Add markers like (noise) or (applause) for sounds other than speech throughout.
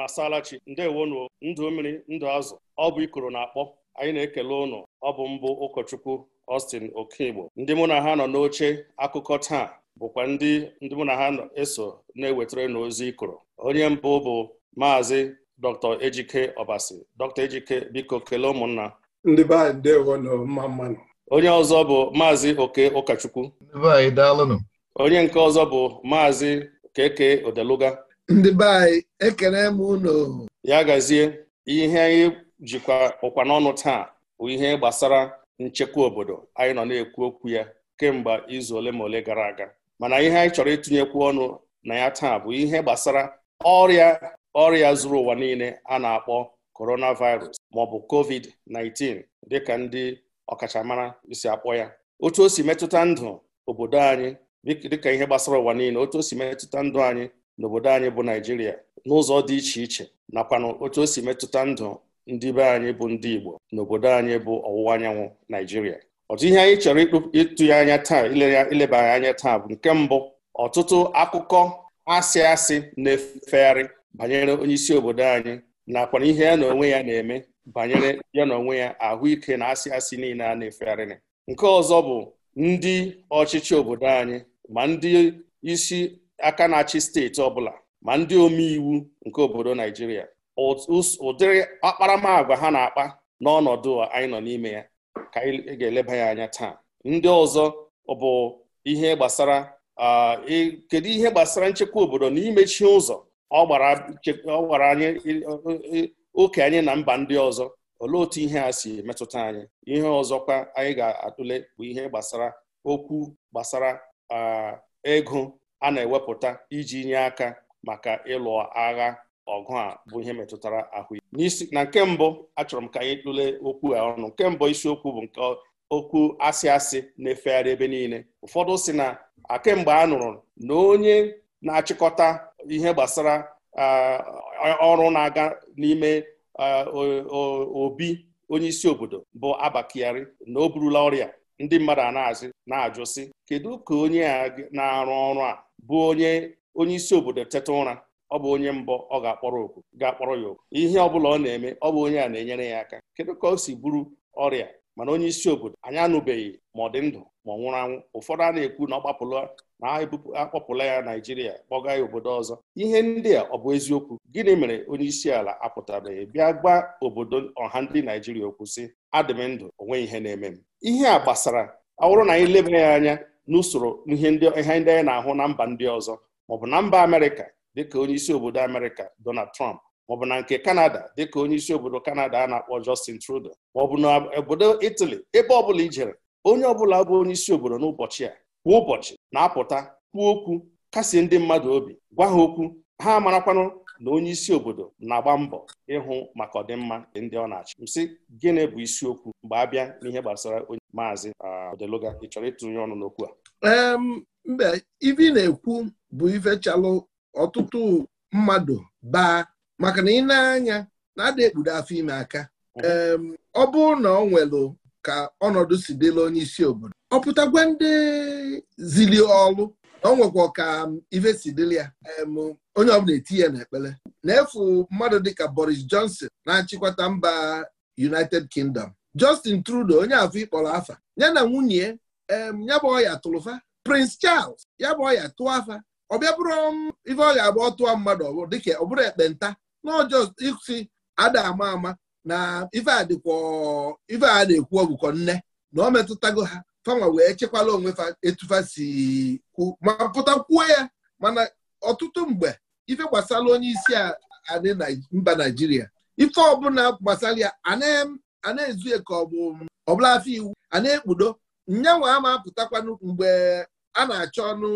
na asalachi ndewonu ndụ mmiri ndụ azụ ọ bụ ikoro na-akpọ anyị na-ekele ụnụ ọ bụ mbụ ụkọchukwu Austin Okigbo ndị mụ na ha nọ n'oche akụkọ taa bụkwa ndị ndị mụ na ha eso na-ewetara n'ozi ikoro onye mbụ bụ maazị Dr. Ejike Obasi Dr. Ejike biko kelee ụmụnna ndị be anyị ndewo nọ mma mmanụ onye ọzọ bụ maazị Oke Ụkọchukwu ndị be anyị daalụnụ onye nke ọzọ bụ maazị Keke Odeluga ndị be anyị ekele m unu ya gazie ihe anyị jikwa ụkwa n'ọnụ taa bụ ihe gbasara nchekwa obodo anyị nọ na-ekwu okwu ya kemgbe izu ole ma ole gara aga mana ihe anyị chọrọ ịtụnyekwu ọnụ na ya taa bụ ihe gbasara ọrịa ọrịa zuru ụwa niile a na-akpọ coronavirus ma ọ bụ covid-19 dịka ndị ọkachamara si akpọ ya otu o si ihe gbasara ụwa niile otu o metụta ndụ anyị n'obodo anyị bụ naijiria n'ụzọ dị iche iche nakwana otu o si metụta ndụ ndị be anyị bụ ndị igbo n'obodo anyị bụ ọwụwa anyanwụ naijiria ọtụ ihe anyị chọrọ ịtụ ya anya taa ileba anya taa bụ nke mbụ ọtụtụ akụkọ asị asị na-efegharị banyere onye isi obodo anyị nakwana ihe ya na onwe ya na-eme banyere ya na onwe ya ahụike na asị asị niile a na-efegharịrị nke ọzọ bụ ndị ọchịchị obodo anyị ma ndị isi aka na-achị steeti ọbụla ma ndị omeiwu nke obodo Naijiria ụdịrị akparamagwa ha na-akpa n'ọnọdụ anyị nọ n'ime ya ka anyị ga-eleba ya anya taa ndị ọzọ bụ ihe gbasara e, kedu ihe gbasara nchekwa obodo na imechi ụzọ ọ gbara anyị e, oke anyị na mba ndị ọzọ olee otu ihe a si metụta anyị ihe ọzọkwa anyị ga-atụle bụ ihe gbasara okwu gbasara ego a na-ewepụta iji nye aka maka ịlụ agha ọgụ a bụ ihe metụtara ahụ n'isi na nke mbụ achọrọ m ka anyị tụlee okwu a ọnụ nke mbụ isiokwu bụ nke okwu asị asị na-efegharị ebe niile ụfọdụ si na kemgbe a nụrụ na onye na-achịkọta ihe gbasara ọrụ na-aga n'ime obi onye isi obodo bụ Abakari na o burula ọrịa ndị mmadụ a na-asị na-ajụ sị kedu ka onye a na-arụ ọrụ a bụ onye onye isi obodo teta ụra ọ bụ onye mbọ ọ ga-akpọrọ oku ga-akpọrọ ya oku ihe ọ bụla ọ na-eme ọ bụ onye a na-enyere ya aka kedu ka o si bụrụ ọrịa mana onye isi obodo anyị anụbeghị ma ọ dị ndụ ma ọ nwụrụ anwụ ụfọdụ a na-ekwu na ọ gbapụla na akpọpụla ya naijiria kpọga ya obodo ọzọ ihe ndị a ọ bụ eziokwu gịnị mere onye isi ala apụtabeghị bịa gwa obodo ọha ndị naijiria okwu sị adị m ndụ onwe ihe na-eme m ihe a gbasara ọ bụrụ na anyị leba ya anya n'usoro ihe ndị anyị na-ahụ na mba ndị ọzọ maọbụ na mba amerịka dịka onye isi obodo amerịka donald trump maọbụ na nke kanada dịka onye isi obodo kanada a na-akpọ justin trudeau maọbụ na obodo italy ebe ọbụla i jere onye ọbụla bụ onye isi obodo n'ụbọchị a kwa ụbọchị na-apụta kwuo okwu kasie ndị mmadụ obi gwa ha okwu ha marakwanụ na onye isi obodo na-agba mbọ ịhụ maka ọdịmma ndị ọ na-achị msị gịnị bụ isiokwu mgbe a bịa n'ihe gbasara onye maazị uh, Odeluga ị chọrọ ịtụnye ọnụ n'okwu a mbe ibi na-ekwu bụ ifechalụ ọtụtụ mmadụ baa maka na ị na-anya na-ada ekpudo afọ ime aka mm-hmm. ọ bụrụ na ọ nwelụ ka ọnọdụ si dịla onye isi obodo ọ ndị zili ọlụ na ọ nwekwa ka ife si dịla ya onye ọbụla eti ya n'ekpere na-efu mmadụ dịka Boris Johnson na-achịkwata mba United Kingdom Justin Trudeau onye afọ ịkpọrọ afa ya na nwunye ya bụ ọya tụlụfa Prince Charles ya bụ ọya tụọ afa ọ bịa bụrụ ife ọ ga-agba ọtụọ mmadụ ọbụrụ dịka ọ bụrụ ekpenta na ọjọọ isi ada ama ama na ife a na-ekwu ọgụkọ nne na ọ metụtago ha fama wee chekwala onwe etufa si kwu ma pụta kwuo ya mana ọtụtụ mgbe ife gbasara onye isi adị mba naijiria ife ọbụla gbasara ya a na-ezu ka ọ ọbụla afọ iwu a na-ekpudo nyanwa ama apụtakwanụ mgbe a na-achọ ọnụ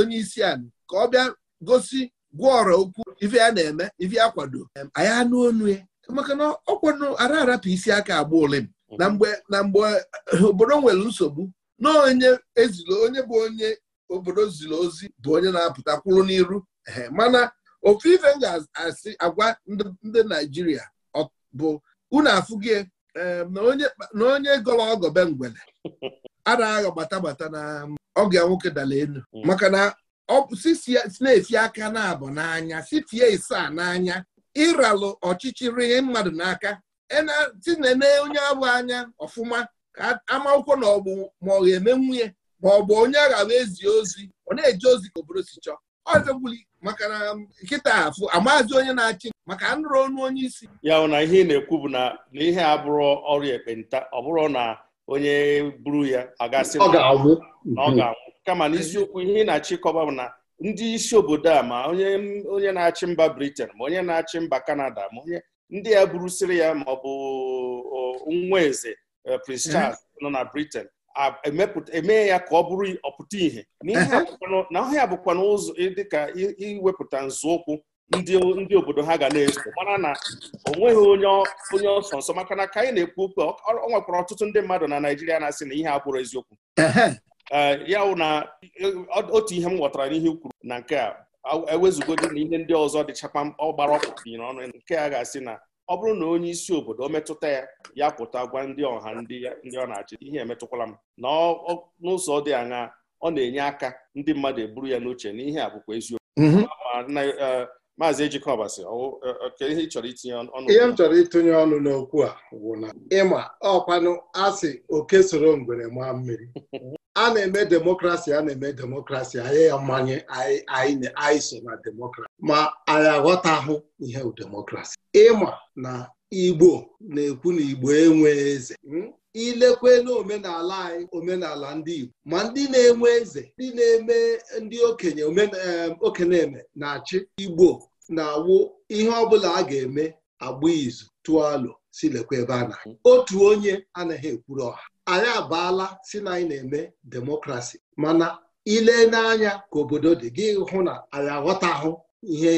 onye isi a ka ọ bịa gosi gwọọrọ okwu ife a na-eme ife akwado. kwado anyị anụ onu ya maka na ọkwado ara arapụ isi aka agba m. na mgbe na mgbe eh, obodo nwere nsogbu na onye ezilo onye bụ onye obodo ziri ozi bụ onye na-apụta kwụrụ n'iru mana ofu ife m ga-asị agwa ndị Naijiria bụ unu afụgie na onye gọrọ ọgọbe mgbele ara (laughs) agha gbata gbata na ọgọ ya nwoke dala elu hmm. maka na na esi aka na abụ n'anya sitie isaa n'anya ịralụ ọchịchịrị mmadụ n'aka tinene onye abụ anya ọfụma ka amakwụkwọ na ọgbụ ma ọ ga-eme nwunye ma ọ bụ onye aghawa ezi ozi ọ na-eji ozi ka obodo si chọọ ọzọgbuli maka na um, nkịta afụ amazi onye na-achị maka nrụrụ ọnụ onye isi ya na ihe ị na-ekwu bụ na na ihe abụrụ ọrịa ekpenta ọ bụrụ na onye buru ya agasị na ọ ga-anwụ kama n'isiokwu ihe na-achịkọba bụ na ndị isi obodo a ma onye na-achị mba Britain ma onye na-achị mba Canada ma onye ndị ya burusiri ya ma ọ bụ nwa eze eh, Prince mhm. Charles nọ na Britain emee ya ka ọ bụrụ ọpụta ihe na ọhịa bụkwa n'ụzọ dịka iwepụta nzọụkwụ ndị obodo ha ga na-eso mara na o nweghị onye ọsọ nsọ maka na ka anyị na-ekwu okwu ọ nwekwara ọtụtụ ndị mmadụ na naijiria na-asị na ihe abụrụ eziokwu Eh, ya wụ na eh, otu ihe m ghọtara n'ihe kwuru na nke a ewezugodi na ihe ndị ọzọ dịchakwa ọgbara ọkpụkpịrị n'ọnụ nke a ga-asị na ọ bụrụ na onye isi obodo o metụta ya ya pụta gwa ndị ọha ndị ọ na-achị ihe emetụkwala m na n'ụzọ dị aṅa ọ na-enye aka ndị mmadụ eburu ya n'uche na ihe a bụkwa eziokwu mhm. eh, maazị Ejikọba ihe ị chọrọ itinye ọnụ ihe m chọrọ itinye ọnụ n'okwu a bụ na ịma ọkwanụ asị oke soro ngwere maa mmiri (laughs) a na-eme demokrasi a na-eme demokrasi anyị ya mmanye anyị so na demokrasi ma anyị aghọtahụ ihe demokrasi ịma na igbo na-ekwu na igbo enwe eze hmm? ilekwe n'omenala anyị omenala ndị igbo ma ndị na-enwe eze ndị na-eme ndị okenye okeneme na-achị igbo na-awụ ihe ọbụla a ga-eme agba izu tụọ si lekwa ebe a na otu onye anaghị ekwuru ọha anyị abaala si na anyị na-eme demokrasi mana ile n'anya ka obodo dị gị hụ na anyị ahụ ihe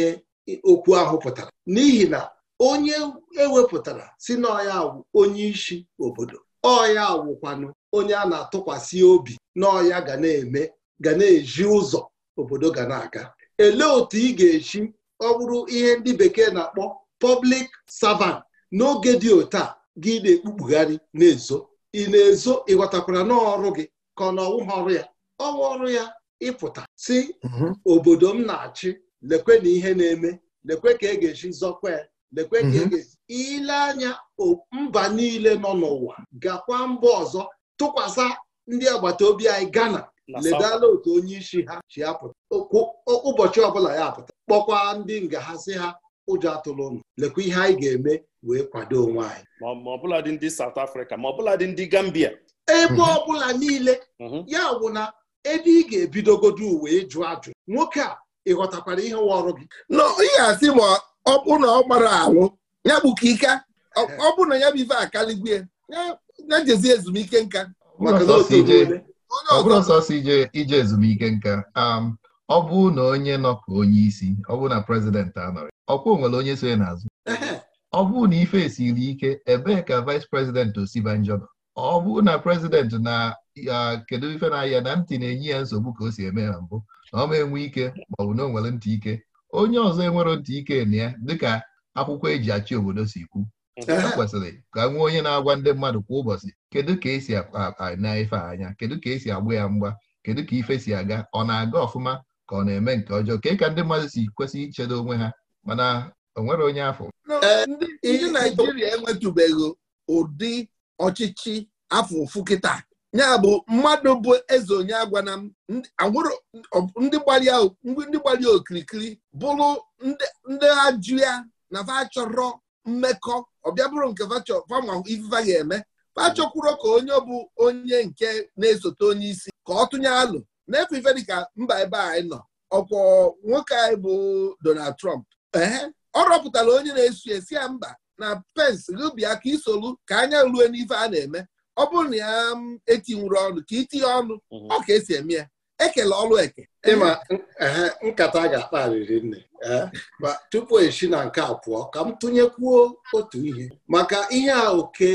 okwu ahụ pụtara n'ihi na onye ewepụtara si na ọya awụ onye isi obodo ọya awụkwanụ onye a na-atụkwasị obi n'ọya ya ga na-eme ga na-eji ụzọ obodo ga na-aga elee otu ị ga-eji ọ bụrụ ihe ndị bekee na-akpọ pọblik savant n'oge dị otu a gị na-ekpukpugharị na-ezo ị na-ezo ịghọtakwara n'ọrụ gị ka ọ na ọwụ ha ọrụ ya ọwụ ọrụ ya ịpụta si mhm. obodo m na-achị lekwe na ihe na-eme lekwe ka e ga-esi zọkwa ya lekwe ka e mhm. ga-esi ile anya mba niile nọ n'ụwa gakwa mba ọzọ tụkwasị ndị agbata obi anyị Ghana ledala otu onye isi ha si apụta ụbọchị ọbụla ya apụta kpọkwa ndị ngahazi ha ụjọ atụlụ ụnụ lekwa ihe anyị ga-eme wee kwado onwe anyị ma ọbụladị ndị South Africa ma ọbụladị ndị Gambia ebe ọbụla niile mhm. ya bụ na ebe ị ga-ebidogodo uwe ịjụ ajụ nwoke a ị ghọtakwara ihe nwa ọrụ gị n'ihe asị ma ọ bụ na ọ gbara alụ ya bụ ka ike ọ bụ na ya bụ ife akaligwe ya jezi ezumike nka onye ọzọ ije ezumike nka um, ọ bụrụ na onye nọ ka onye isi ọ bụrụ na prezidenti anọrị ọkwụ nwere onye so ya n'azụ ọ bụrụ na ife esiri ike ebee ka vais prezidenti osibanjọ nọ ọ bụrụ na prezidenti na kedu ife na-ahịa na ntị na-enye ya nsogbu ka o si eme na mbụ na ọ ma enwe ike ma ọ bụ na o nwere ntị ike onye ọzọ enwere ntị ike na ya dịka akwụkwọ eji achị obodo si kwu kwesịrị ka nwee onye na-agwa ndị mmadụ kwa ụbọchị kedu ka esi na ife anya kedu ka esi agba ya mgba kedu ka ife si aga ọ na-aga ọfụma ka ọ na-eme nke ọjọọ ka ka ndị mmadụ si kwesị ichedo onwe ha mana o nwere onye afọ ndị naijiria enwetụbeghị ụdị ọchịchị afọ ụfụ kịta ya bụ mmadụ bụ eze onye agwana m ndị gbalịa okirikiri bụrụ ndị ajụ ya na fa chọrọ mmekọ ọbịa bụrụ nke fanwa ifefa ga-eme fa ka onye bụ onye nke na-esote onye isi ka ọ tụnye alụ n'efe ife dịka mba ebe anyị nọ ọkwọ nwoke anyị bụ Donald Trump ee ọ rọpụtara onye na-esu esi ya mba na Pence rubia ka isolu ka anya rue n'ife a na-eme ọ bụrụ na ya mm, etinwuru ọnụ ka itinye ọnụ mhm. ọ ka esi eme ya ekele ọlụ eke ịma nkata ga-akpa nne ma tupu esi na nke a pụọ ka m tụnyekwuo otu ihe maka ihe a oke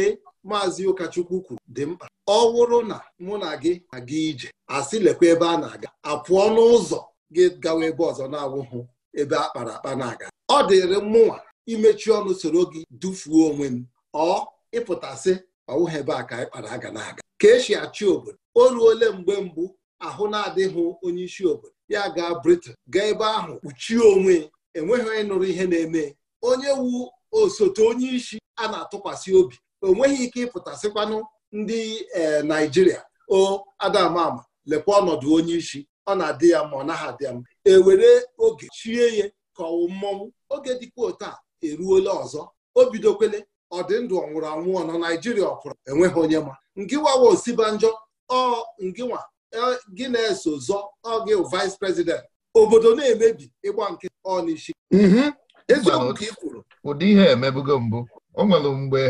maazị ụkọchukwu kwuru dị mkpa ọ wụrụ na mụ na gị aga ije asị lekwa ebe a na-aga apụọ n'ụzọ gị gawa ebe ọzọ na-awụhụ ebe a kpara akpa na-aga ọ dịrị mụnwa imechi ọnụ soro gị dufuo onwe m ọ ịpụtasị ọwụghị ebe a ka anyị kpara aga na-aga ka esi achị obodo o ruole mgbe mbụ ahụ na-adịghị onye isi obodo ya gaa Britain gaa ebe ahụ kpuchie onwe enweghị onye nụrụ ihe na-eme onye wu osote onye isi a na-atụkwasị obi o nweghị ike ịpụtasịkwanụ ndị e, naijiria o adamama lekwa ọnọdụ onye isi ọ na-adị ya ma ọ naghị adị ya mma ewere oge chie ya ka ọwụ mmọnwụ oge dịkwa otu a eruola ọzọ o bidokwele ọdịndụ ọnwụrụ anwụ ọ nọ naijiria ọ enweghị onye ma ngịwawa osibanjọ ọ ngịnwa e, gị na-eso zọ ọ gị vice president obodo na-emebi ịgba nke ọ n'isi mhm. eziokwu ka ị kwuru ụdị ihe emebugo mbụ o nwere mgbe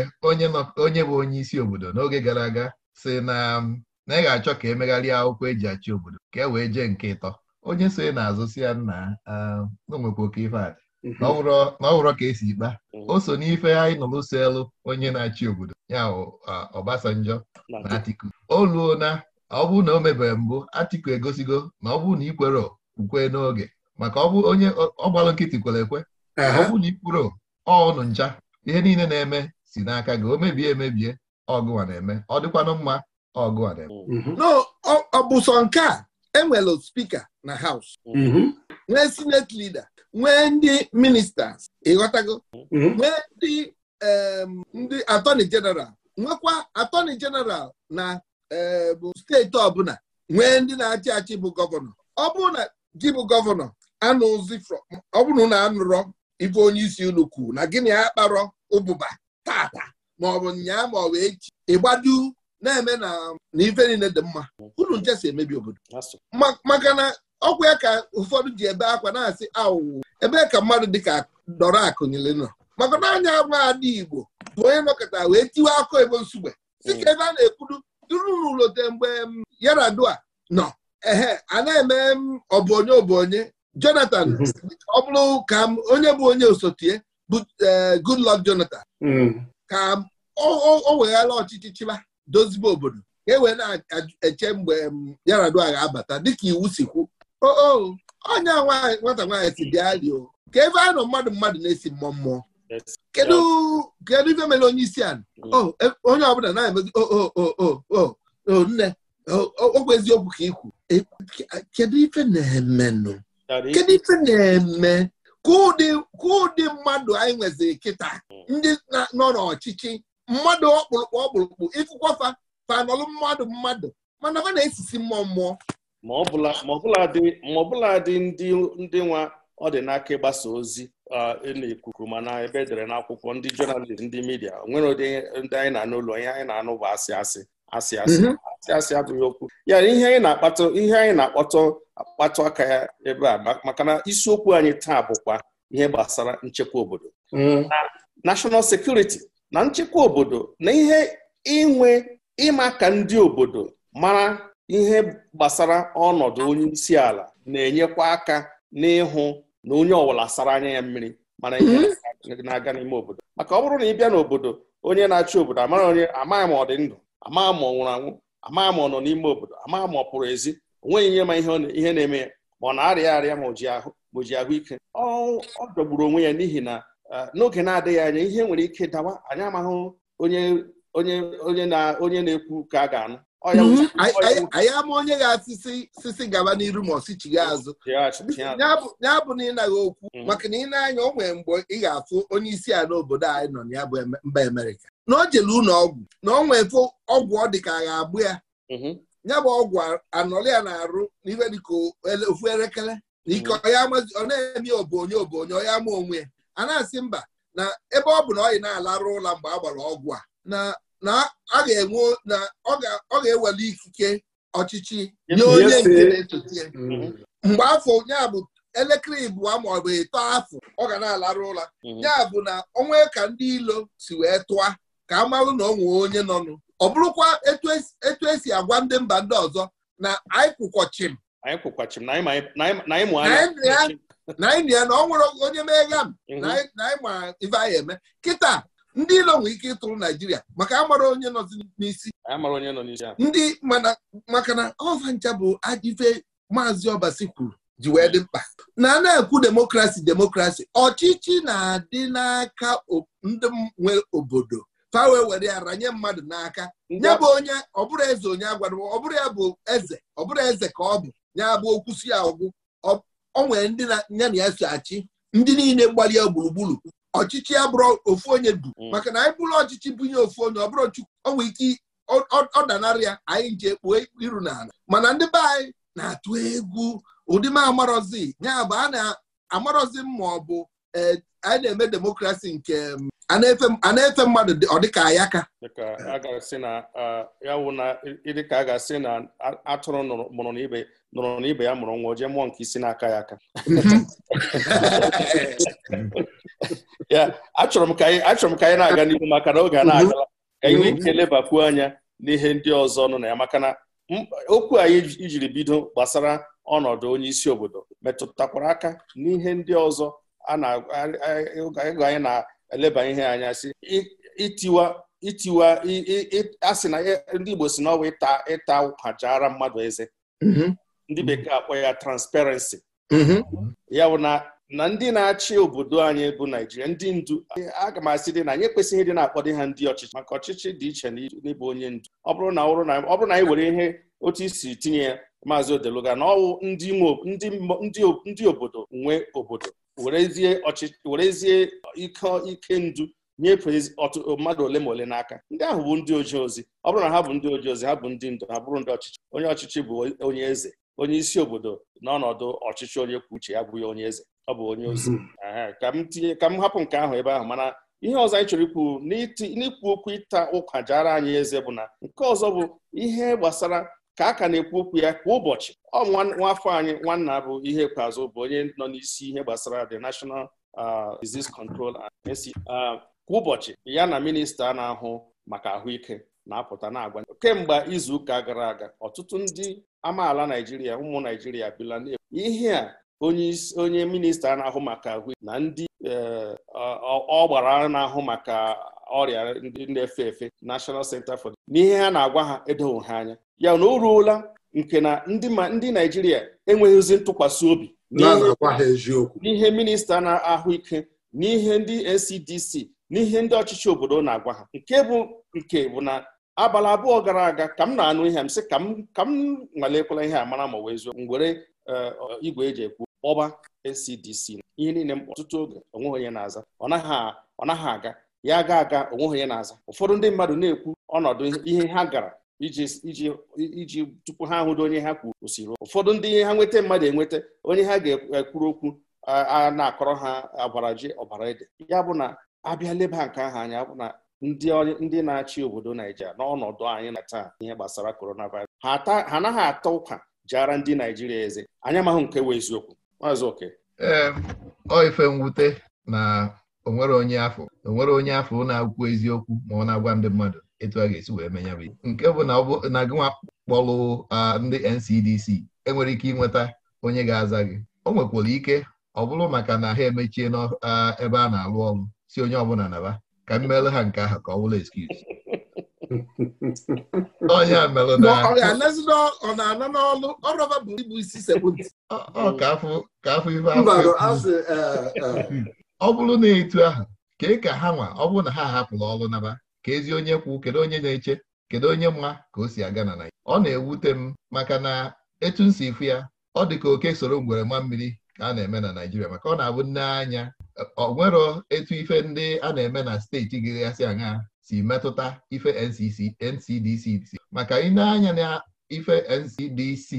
onye bụ onye isi obodo n'oge gara aga si na na ị ga-achọ ka emegharịa akwụkwọ eji achị obodo ka e wee jee nke ịtọ onye so na-azụ si ya nna n'onwekwa um, oke ife na mhm. ka esi ikpa mhm. o so n'ife anyị nọ n'ụsọ onye na-achị obodo ya Obasanjọ na Atiku oluo na ọ bụrụ na o mebere mbụ Atiku egosigo na ọ bụrụ na ikwere ukwe n'oge maka ọ bụ onye ọgbalụ nkịtị kwere ekwe ọ bụrụ na ikwuru ọnụ ncha ihe niile na-eme si n'aka gị o mebie emebie ọgụwa na-eme ọ dịkwanụ mma ọgụwa na-eme mm-hmm. Mm-hmm. ọ nke a enwere spika na haus mm-hmm. nwee senate lida nwee ndị ministas ịghọtago nwee ndị ndị atọni jeneral nwekwa atoni jeneral na bụ steeti ọbụla nwee ndị na-achị achị bụ gọvanọ ọbụna gị bụ gọvanọ anụzi ọbụna anụrọ ife onye isi unu kwuru na gịnị ya kparọ ụbụba tata maọbụ nyaa ma ọ wee ịgbadu na-eme na ife niile dị mma unu nje si emebi obodo maka na ọkwa ya ka ụfọdụ ji ebe akwa na-asị awụwụ ebe ka mmadụ dịka dọrọ akụ nọ maka na anya nwa adị Igbo bụ onye nọkọta wee tiwe akụ ebo nsugbe si ka ebe a na-ekwuru duru n'ụlọte mgbe Yaradua nọ ehe a na-eme ọbụ onye ọbụ onye Jonathan mhm. ọ bụrụ ka onye bụ onye osotie Uh, Goodluck Jonathan hmm. ka o weghara ọchịchị chịba dozibe obodo ka e wee na-eche mgbe um, Yar'Adua ga-abata dịka iwu si kwu onye nwata nwaanyị si dị alio ka ebe a nọ mmadụ mmadụ na-esi mmụọ mmụọ kedu ife mere onye isi ala hmm. e, onye ọbụla na-emezi o nne ogwe eziokwu ka ikwu e, kedu ife na-emenụ kedu ife na-eme ka mmadụ anyị nweziri kịta ndị nọ n'ọchịchị mmadụ ọkpụrụkpụ ọkpụrụkpụ ịkụkwafa fanọlụ mmadụ mmadụ mana ọ na-esisi mmụọ mmụọ ma ọbụla dị ndị nwa ọ dị n'aka ịgbasa ozi e n'ikuku mana ebe edere n'akwụkwọ ndị jọnalist ndị midia onwere ụdị ndị anyị na-anụ onye anyị na-anụ bụ asị asị asị asị mm-hmm. asị asị abụghị okwu ya ihe anyị na-akpata ihe anyị na-akpọtọ akpatụ aka ya ebe a maka na isiokwu anyị taa bụkwa ihe gbasara nchekwa obodo mm-hmm. na national security na nchekwa obodo na ihe inwe ịma ka ndị obodo mara ihe gbasara ọnọdụ onye isi ala na-enyekwa aka n'ịhụ na onye ọwụla sara anya ya mmiri mana ihe mm-hmm. na-aga n'ime obodo maka ọ bụrụ na ị bịa n'obodo onye na-achị obodo amaghị onye amaghị ma ọ dị ndụ Amaa ma ọ nwụrụ anwụ ama ma ọ nọ n'ime obodo ama ma ọ pụrụ ezi onweghị nye ma ihe na-eme ya ma ọ na-arịa arịa ma o ji ahụike ọ dọgburu onwe ya n'ihi na e, n'oge na-adịghị anya ihe nwere ike dawa anyị amaghị onye na-ekwu ka a ga-anụ mhm. anyị ama onye ga-asịsị sisi gaba n'iru ma ọsichighi azụ ya bụ na ịnaghị okwu mhm. maka na ị na-anya o nwere mgbe ị ga-afụ onye isi ala obodo anyị nọ na ya bụ mba Amerịka na o jele ụlọ ọgwụ na ọ nwefe ọgwụ ọ dị ka a ga-abụ ya mhm. ya bụ ọgwụ anọrọ ya na-arụ n'ihe ka ofu elekere na ike mhm. ọ na-eme obonye obonye ọ ya ma onwe ya a na-asị mba na ebe ọ bụ na ọ na-alarụ ụla mgbe a gbara ọgwụ a na ọ ga-enwe na ọ ga-ewere ikike ọchịchị nye onye nke na-esote ya mhm. mm-hmm. mgbe afọ ya bụ elekere ịbụa ma ọ bụ ịtọ afọ ọ ga na-alarụ ụla ya bụ na ọnwa ka ndị ilo si wee tụa ka a marụ na ọ nwee onye nọnụ ọ bụrụkwa etu esi agwa ndị mba ndị ọzọ na anyị kwụkwọchim na anyị ya na ọ nwere onye megha m na anyị ma ife anyị eme kịta ndị ilo nwee ike ịtụrụ naijiria maka amara onye nọ n'isi ndị maka na ọvancha bụ ajife maazị ọbasi kwuru ji wee dị mkpa na na-ekwu demokrasi demokrasi ọchịchị na-adị n'aka ndị nwe obodo ka wee were ara nye mmadụ n'aka nye bụ onye ọ bụrụ eze onye agwara ọ bụrụ ya bụ eze ọ bụrụ eze ka ọ bụ nye bụ okwusi si ya ọgwụ ọ nwere ndị ya na ya so achị ndị niile mgbali ya gburugburu ọchịchị ya bụrụ ofu onye du mm. maka na anyị bụrụ ọchịchị ihe ofu onye ọ bụrụ onwe ike ọ danara ya anyị nje kpuo iru n'ala mana ndị be anyị na-atụ egwu ụdị m amarọzi ya bụ a na-amarọzi ma ọ bụ eh, anyị na-eme demokrasi nke a na-efe mmadụ ọ dịka ya ka ya na a ga-asị na atụrụ mụrụ n'ibe nụrụ n'ibe ya mụrụ nwa jee mụọ nke isi n'aka ya aka ya achọrọ m ka anyị na-aga n'ihu maka na oge a na-agala ka anyị nwee ike lebakwuo anya n'ihe ndị ọzọ nọ na ya maka na okwu anyị ijiri bido gbasara ọnọdụ onye isi obodo metụtakwara aka n'ihe ndị ọzọ a na-ego anyị na eleba ihe anya si itiwa itiwa a na ndị Igbo si na ọwa ịta ịta ụkwajara mmadụ eze mm-hmm. ndị bekee akpọ ya transparency mm-hmm. ya bụ na na ndị na-achị obodo anyị bụ Naijiria ndị ndu aga m asị dị na anyị ekwesịghị dị na-akpọdo ha ndị ọchịchị maka ọchịchị dị iche n'ịbụ onye ndu ọ bụrụ na ọ bụrụ na anyị were ihe otu isi tinye ya maazị Odeluga na ọwụ ndị obodo nwe obodo werezie werezie ike ike ndu mmadụ ole ma ole n'aka ndị ahụ bụ ndị oji ozi ọ bụrụ na ha bụ ndị oji ozi ha bụ ndị ndụ ha bụrụ ndị ọchịchị onye ọchịchị bụ onye eze onye isi obodo n'ọnọdụ ọchịchị onye kwuo uche ya bụ onye eze ọ bụ onye ozi mhm. ka m tinye ka m hapụ nke ahụ ebe ahụ mana ihe ọzọ anyị chọrọ ikwu n'ikwu okwu ịta ụkwa jara anyị eze bụ na nke ọzọ bụ ihe gbasara ka a ka na-ekwu okwu ya kwa ụbọchị ọ nwafọ anyị nwanna bụ ihe kpazụ bụ onye nọ n'isi ihe gbasara the National uh, Disease Control uh, kwa ụbọchị ya na minista na-ahụ maka ahụike na-apụta na-agwa kemgbe izuụka gara aga ọtụtụ ndị amaala Naijiria ụmụ Naijiria bila ihe a onye minista na-ahụ maka ahụike na ndị uh, ọgbara na-ahụ maka ọrịa ndị na-efe efe National Center for n'ihe ha na-agwa ha edoghị ha anya ya na o ruola nke na ndị naijiria enweghịzi ntụkwasị obi n'ihe minista na-ahụ ike n'ihe ndị ncdc n'ihe ndị ọchịchị obodo na-agwa ha nke bụ nke bụ na abalị abụọ gara aga ka m na-anụ ihe m sị ka m ka m nwalekwala ihe a mara ma wee zuo m were eh, igwe eji ekwu kpọba ncdc ihe niile m ọtụtụ oge onweghị onye na-aza ọ naghị aga ya aga aga onwe onye na-aza ụfọdụ ndị mmadụ na-ekwu ọnọdụ ihe ha gara iji iji tupu ha hụrụ onye ha kwuru ụfọdụ ndị ihe ha nweta mmadụ enweta onye ha ga-ekwuru okwu a na-akọrọ ha agwara ji ọbara ede ya bụ na abịa leba nke ahụ anya bụ na ndị na-achị obodo Naijiria n'ọnọdụ anyị na taa ihe gbasara coronavirus ha anaghị ata ụka jara ndị Naijiria eze anyị amaghị nke wee eziokwu maazị oke ee mwute na onwere onye afọ onwere onye afọ na akwụkwọ eziokwu ma ọ na-agwa ndị mmadụ etu a ga-esi wee menya bụ nke bụ na gịnwa kpọlụ ndị NCDC enwere ike ịnweta onye ga-aza gị o nwekwara ike ọ bụrụ maka na ha emechie n'ebe a na-alụ ọrụ si onye ọbụla naba ka m meere ha nke ahụ ka ọ bụrụ excuse (laughs) ọ bụrụ na etu ahụ kee ka ha nwa ọ bụrụ na ha hapụrụ ọrụ naba ka ezi onye kwu kedu onye na-eche kedu onye mma ka o si aga na Naịjirịa ọ na-ewute m maka na etu m si ifu ya ọ dị ka oke soro ngwere nwa mmiri ka a na-eme na Naịjirịa maka ọ na-abụ nne anya ọ nwero etu ife ndị a na-eme na steeti gịgasị aṅa si metụta ife NCDC maka ị na-anya na ife NCDC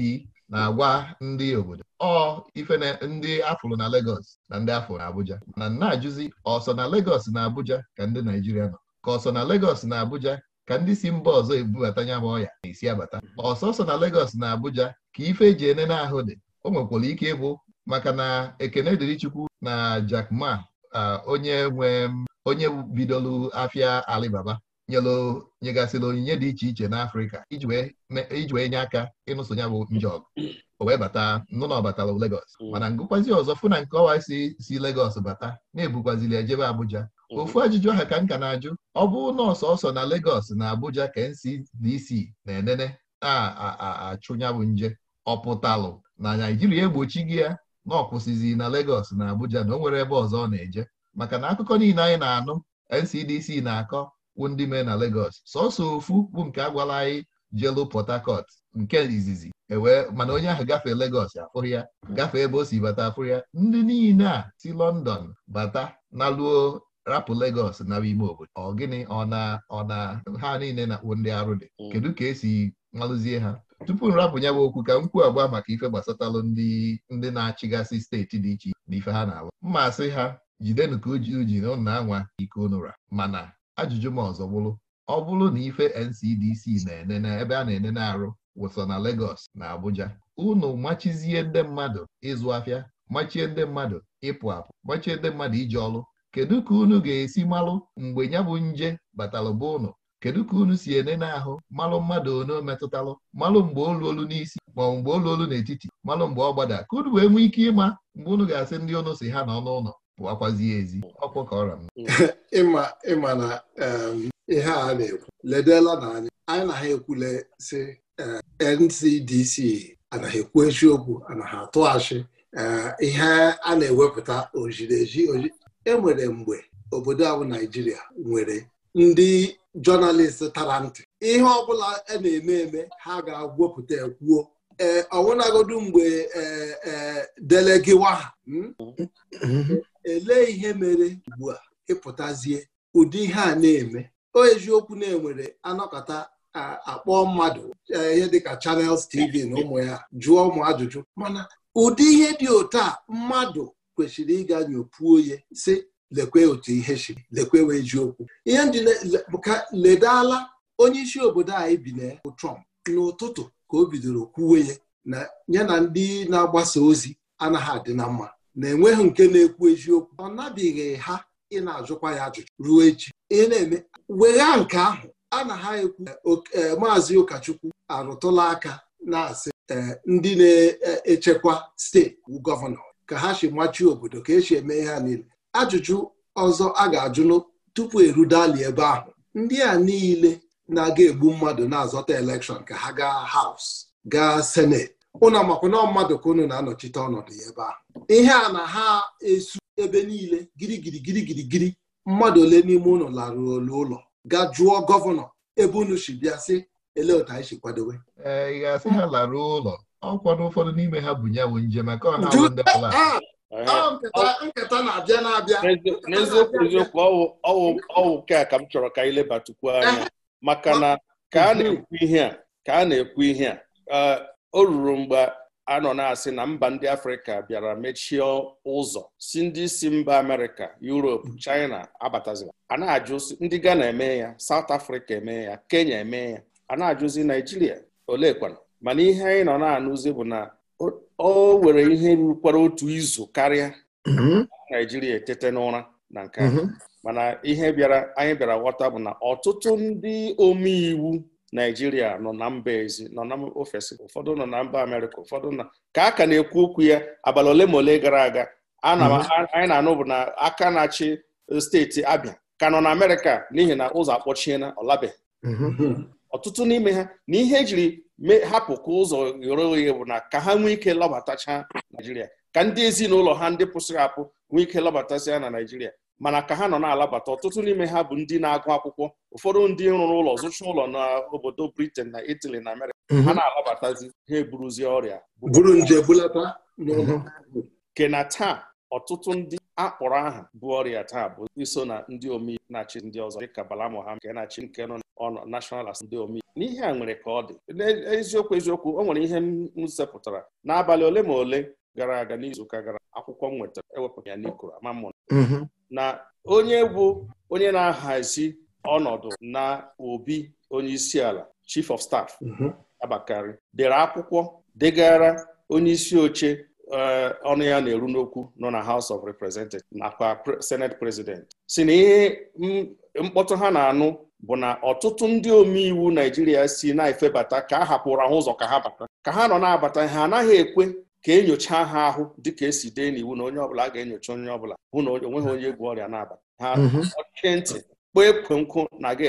na-agwa ndị obodo ọ ife ndị afụrụ na Lagos na ndị afụrụ na Abuja mana na-ajụzi ọsọ na Lagos na Abuja ka ndị naijiria nọ ka ọsọ na Lagos na Abuja ka ndị si mba ọzọ ebubata ya ma ọya na-esi abata ọsọsọ na Lagos na Abuja ka ife eji na ahụ dị o nwekwara ike ịbụ maka na ekene dịrị Chukwu na jakma Ma onye nwe onye bidolu afịa Alibaba nyelụ onyinye dị iche iche n'Afrịka iji wee nye aka ịnụso ya bụ nje ọgụ o wee bata nụ na Lagos mm. mana ngụkwazi ọzọ fụ na nke ọwa si si Lagos bata na-ebukwazili ejebe Abuja ofu ajụjụ ahụ ka m ka na-ajụ ọ bụrụ na ọsọsọ na legos na Abuja ka NCDC na-enene na-achụnya nje ọpụtalụ na Naijiria egbochi gị ya na ọkwụsịzi na legos na Abuja na o nwere ebe ọzọ ọ na-eje maka na akụkọ niile anyị na-anụ NCDC na-akọ kwu ndị mee na legos sọsọ ofu bụ nke agwala anyị jelu Port Harcourt nke izizi ewee mana onye ahụ gafee legos afụrụ ya gafee ebe o si bata afụrụ ya ndị niile a si London bata na luo rapụ Lagos naba ime obodo ọ gịnị ọ na ọ na ha niile na-akpụ ndị arụ dị mm. kedu ka esi malụzie ha tupu nrapụ ya bụ okwu ka m kwuo agba maka ife gbasatalụ ndị ndị na-achịgasị steeti dị iche na ife ha na arụ mma asị ha jidenu ka uju ji na ụna anwa ike ụnụra mana ajụjụ m ọzọ bụrụ ọ bụrụ na ife NCDC na-ene na ebe a na-enene arụ wụsọ na Lagos na Abuja unu machizie ndị mmadụ ịzụ afịa machie ndị mmadụ ịpụ apụ machie ndị mmadụ iji ọrụ kedu ka unu ga-esi malụ mgbe ya bụ nje batalụ bụ ụnụ kedu ka unu si ene n'ahụ malụ mmadụ one metụtalụ malụ mgbe olu olu n'isi maọbụ mgbe olu olu n'etiti malụ mgbe ọ gbada ka unu wee nwee ike ịma mgbe unu ga-asị ndị ọnụ si ha n'ọnụ ụlọ pụakwazie ezi ọkwụ ka ọra m (laughs) ịma na um, ihe a na-ekwu ledela na anyị anyị na ha ekwule si um, NCDC anaghị ekwu eziokwu anaghị atụ achị um, ihe a na-ewepụta oji. enwere mgbe obodo ahụ Naijiria nwere ndị jọnalist tara ntị ihe ọbụla a e na-eme eme ha ga-agwọpụta ekwuo ee mgbe ee delegiwa ha hmm? elee ihe mere ugbu a ịpụtazie ụdị ihe a na-eme o eziokwu na-enwere anọkọta akpọ mmadụ e, ihe dịka Channels TV na ụmụ ya jụọ ụmụ ajụjụ mana ụdị ihe dị otu a mmadụ kwesịrị ịga nyopuo ya si lekwe otu ihe si lekwe wee ji okwu ihe m ji ka ledala onye isi obodo anyị bi na bụ Trump n'ụtụtụ ka o bidoro kwuwe ya na ya na ndị na-agbasa ozi anaghị adị na mma na-enweghị nke na-ekwu eziokwu ọ nabighị ha ị na-ajụkwa ya ajụjụ ruo echi ị na-eme wegha nke ahụ a na ha ekwu eh, maazị ụkọchukwu arụtụla aka na-asị eh, ndị na-echekwa steeti gọvanọ ka ha si machuo obodo ka esi eme ihe a niile ajụjụ ọzọ a ga-ajụnụ tupu erudali ebe ahụ ndị a niile na-aga egbu mmadụ na-azọta elekshọn ka ha gaa haus gaa senet ụlọ makwụna mmadụ ka ụnụ na-anọchite ọnọdụ ya ebe ahụ ihe a na ha esu ebe niile girigiri girigirigiri mmadụ ole n'ime ụlọ larụ olu ụlọ ga jụọ gọvanọ ebe unu si bịa sị ele otu anyị si kwadowe eh, ọkwa ụfọdụ n'ime ha bụ ya bụ nje ọ na-awụ ndị ala nketa na-abịa na-abịa n'eziokwu eziokwu ọwụ nke a ka m chọrọ ka anyị lebatukwu anya eh, maka na ka a na-ekwu ihe a ka a na-ekwu ihe a eh, o ruru mgbe a nọ na-asị na mba ndị afrịka bịara mechie ụzọ si ndị isi mba amerịka yuropu mm. china abatazila a na-ajụzi ndị ghana eme ya saut afrịka eme ya kenya eme ya a na-ajụzi naijiria olekwana mana ihe anyị nọ na-anụzi bụ na o were ihe rukwara otu izu karịa mhm. naijiria etete n'ụra na nke mhm. mana ihe bịara anyị bịara ghọta bụ na ọtụtụ ndị omeiwu naijiria nọ na mba ezi nọ na ofesi ụfọdụ nọ na mba amerịka ụfọdụ na ka a ka na-ekwu okwu ya abalị ole ma ole gara aga mhm. anyị na-anụ bụ na aka na-achị steeti abịa ka nọ na amerịka n'ihi na ụzọ akpọchiena ọ ọtụtụ n'ime ha na ihe ejiri hapụ ka ụzọ ghere oghe bụ na ka ha nwee ike lọbatacha naijiria ka ndị ezinụlọ ha ndị pụsịrị apụ nwee ike lọbatasị na naijiria mana ka ha nọ na-alabata ọtụtụ n'ime ha bụ ndị na-agụ akwụkwọ ụfọdụ ndị rụrụ ụlọ zụcha ụlọ n'obodo britain na itali na amerịka mhm. ha na-alabatazi ha eburuzie ọrịa buru nje bulata n'ụlọ na taa ọtụtụ ndị akpọrọ aha bụ ọrịa taa bụ iso na ndị omeiwu na-achị ndị ọzọ dịka Bala Mohammed nke na-achị nke nọ ọnọ National Assembly ndị omeiwu n'ihe a nwere ka ọ dị n'eziokwu eziokwu o nwere ihe m zepụtara n'abalị ole ma ole gara aga n'izuụka gara akwụkwọ m nwetara ewepụta ya n'ikoro ama mm-hmm. na onye bụ onye na-ahazi ọnọdụ na obi onye isi ala chief of staff mm-hmm. Abakarị. dere akwụkwọ degara onye isi oche Eh, ọnụ ya na-eru n'okwu nọ na House of Representatives nakwa Senate President si na ihe mkpọtụ ha na-anụ bụ na ọtụtụ ndị omeiwu Naijiria si na-efebata ka a hapụrụ ahụ ụzọ ka ha bata ka ha nọ na-abata ha anaghị ekwe ka enyocha ha ahụ dịka esi dee n'iwu na onye ọbụla ga-enyocha onye ọbụla hụ na onweghị onye egwu ọrịa na-abata ha mhm. ọchịchị ntị kpọọ ekwe nkụ na-aga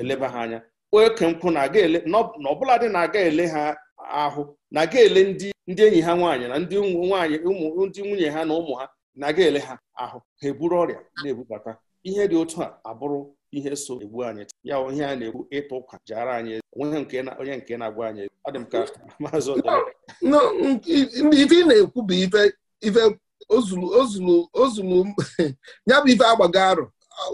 eleba ha anya kpọọ ekwe nkụ na-aga ele na ọbụladị na-aga ele ha ahụ na ga ele ndị ndị enyi ha nwaanyị na ndị nwaanyị ụmụ ndị nwunye ha na ụmụ ha na ga ele ha ahụ ha eburu ọrịa na-ebubata ihe dị otu a abụrụ ihe so egbu anyị ya ihe a na-ekwu ịtụ ụka jara anyị onye nke na-agwa anyị ọ dị m ka (laughs) maazị ife ị na-ekwu bụ ife ozulu ozulu ozulu (laughs) ya bụ ife agbago arụ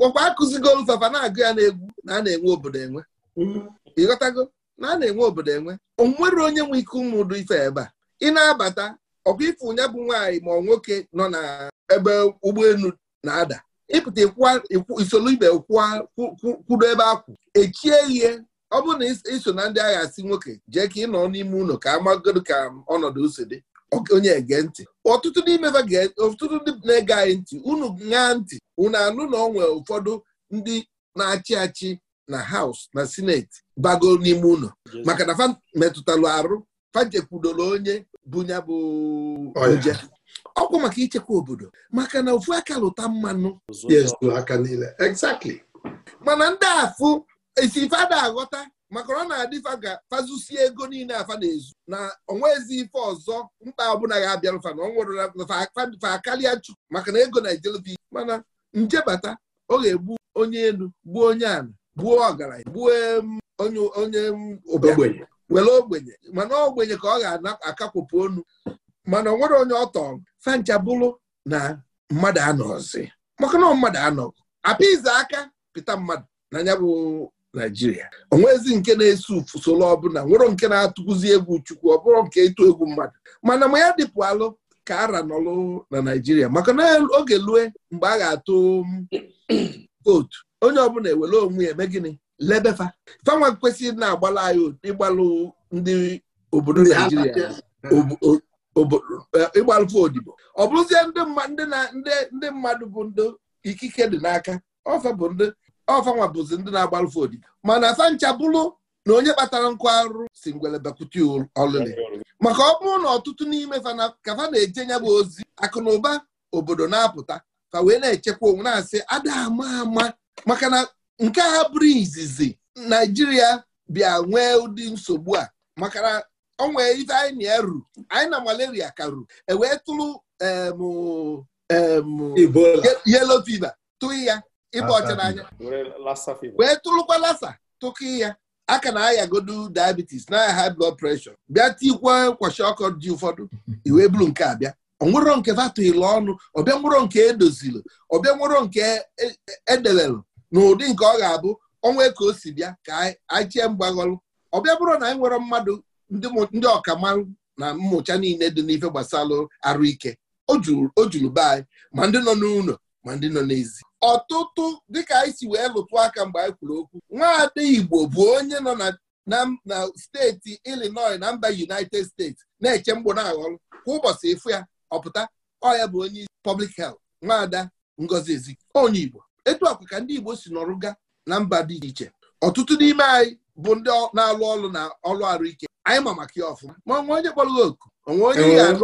ọkwa akụzigo fafa na-agụ ya na egwu na a na-enwe obodo enwe mm-hmm. ịghọtago na a na-enwe obodo enwe onwere onye nwe ike ụmụdụ ife ebe a ị na-abata ọkwa ife onye bụ nwaanyị ma ọ nwoke nọ na ebe ụgbọelu na-ada ịpụta isolu ibe kwudo ebe akwụ echie ihe ọ bụrụ na iso na ndị agha asị nwoke jee ka ị nọ n'ime ụlọ ka amagodo ka ọnọdụ ose dị onye ege ntị ọtụtụ n'ime ọtụtụ ndị na-ege anyị ntị unu ṅaa ntị unu anụ na ọ nwere ụfọdụ ndị na-achị achị na haus na sineti bago n'ime ụlọ maka na fa metụtalụ arụ fanjekwudoro onye bunya bụ oje ọkwa maka ichekwa obodo maka na ofu aka lụta mmanụ mana ndị afụ esi ife ada aghọta maka ọ na-adịfa adị ga fazusie ego niile afa na-ezu na onwezi ife ọzọ mkpa ọbụla ya fa na fa akalia chu maka na ego na ijelvi mana njebata ọ ga-egbu onye elu gbuo onye ala gbuo ọgaranya gbuo onye ogbenye were ogbenye mana ogbenye ka ọ ga-akakwụpụ onu mana nwere onye ọtọ bụrụ na mmadụ anọzi maka na mmadụ anọ apịza aka pịta mmadụ na ya bụ naijiria onwezi nke na esi usoro ọbụla nwere nke na-atụkwuzi egwu chukwu ọ bụrụ nke ịtụ egwu mmadụ mana ma ya dịpụ alụ ka ara nọlụ na naijiria maka na oge lue mgbe a ga-atụ (clears throat) vootu. onye ọbụla ewere onwe eme gịnị lebefa fanwa kwesịrị na-agbala anyị ịgbalụ ndị obodo naijiria e, ịgbalụfe odibo ọ bụrụzie ndị mmadụ bụ ndị ikike dị n'aka ọfanwa bụzi ndị na-agbalụfe odibo mana fancha bụrụ na onye kpatara nkụ arụ si ngwere bekwute ọlụlị maka ọ bụrụ na ọtụtụ n'ime fana ka fa na-eje nya bụ ozi akụ na ụba obodo na-apụta fa wee na-echekwa onwe na-asị ada ama ama maka na nke a bụrụ izizi naijiria bịa nwee ụdị nsogbu a maka na ọ nwee ife anyị na-eru anyị na malaria ka karu ewee tụrụ yelo fiva tụghị ya ịba ọcha n'anya wee tụrụkwa lasa tụkị ya aka na ayagodu diabetes na high blood pressure bịa tikwa kwashi ọkụ dị ụfọdụ (laughs) iwe bụrụ nke a bịa onwero nke vatụghịla ọnụ ọbịa nwero nke edozilụ ọbịa nwero nke edelelụ e, e, e n'ụdị nke ọ ga-abụ ọnwa ka o si bịa ka anyị chie ọ bịa bụrụ na anyị e nwere mmadụ ndị ọkamalụ na mmụcha niile dị n'ife gbasara arụ ike o juru be anyị ma ndị nọ n'ụlọ ma ndị nọ n'ezi ọtụtụ dịka anyị si wee lụtụ aka mgbe anyị kwuru okwu nwaada Igbo bụ onye nọ na steeti Illinois na mba United States na-eche mgbo na aghọlụ kwa ụbọchị ịfụ ya ọpụta ọ ya bụ onye isi public health nwaada Ngozi Ezike onye Igbo etu akwa ka ndị Igbo si n'ọrụ ga na mba dị iche iche ọtụtụ n'ime anyị bụ ndị na-alụ ọrụ na ọrụ arụike anyị ma maka ya ọfụma ma onwe onye kpọrọ oku onwe onye ga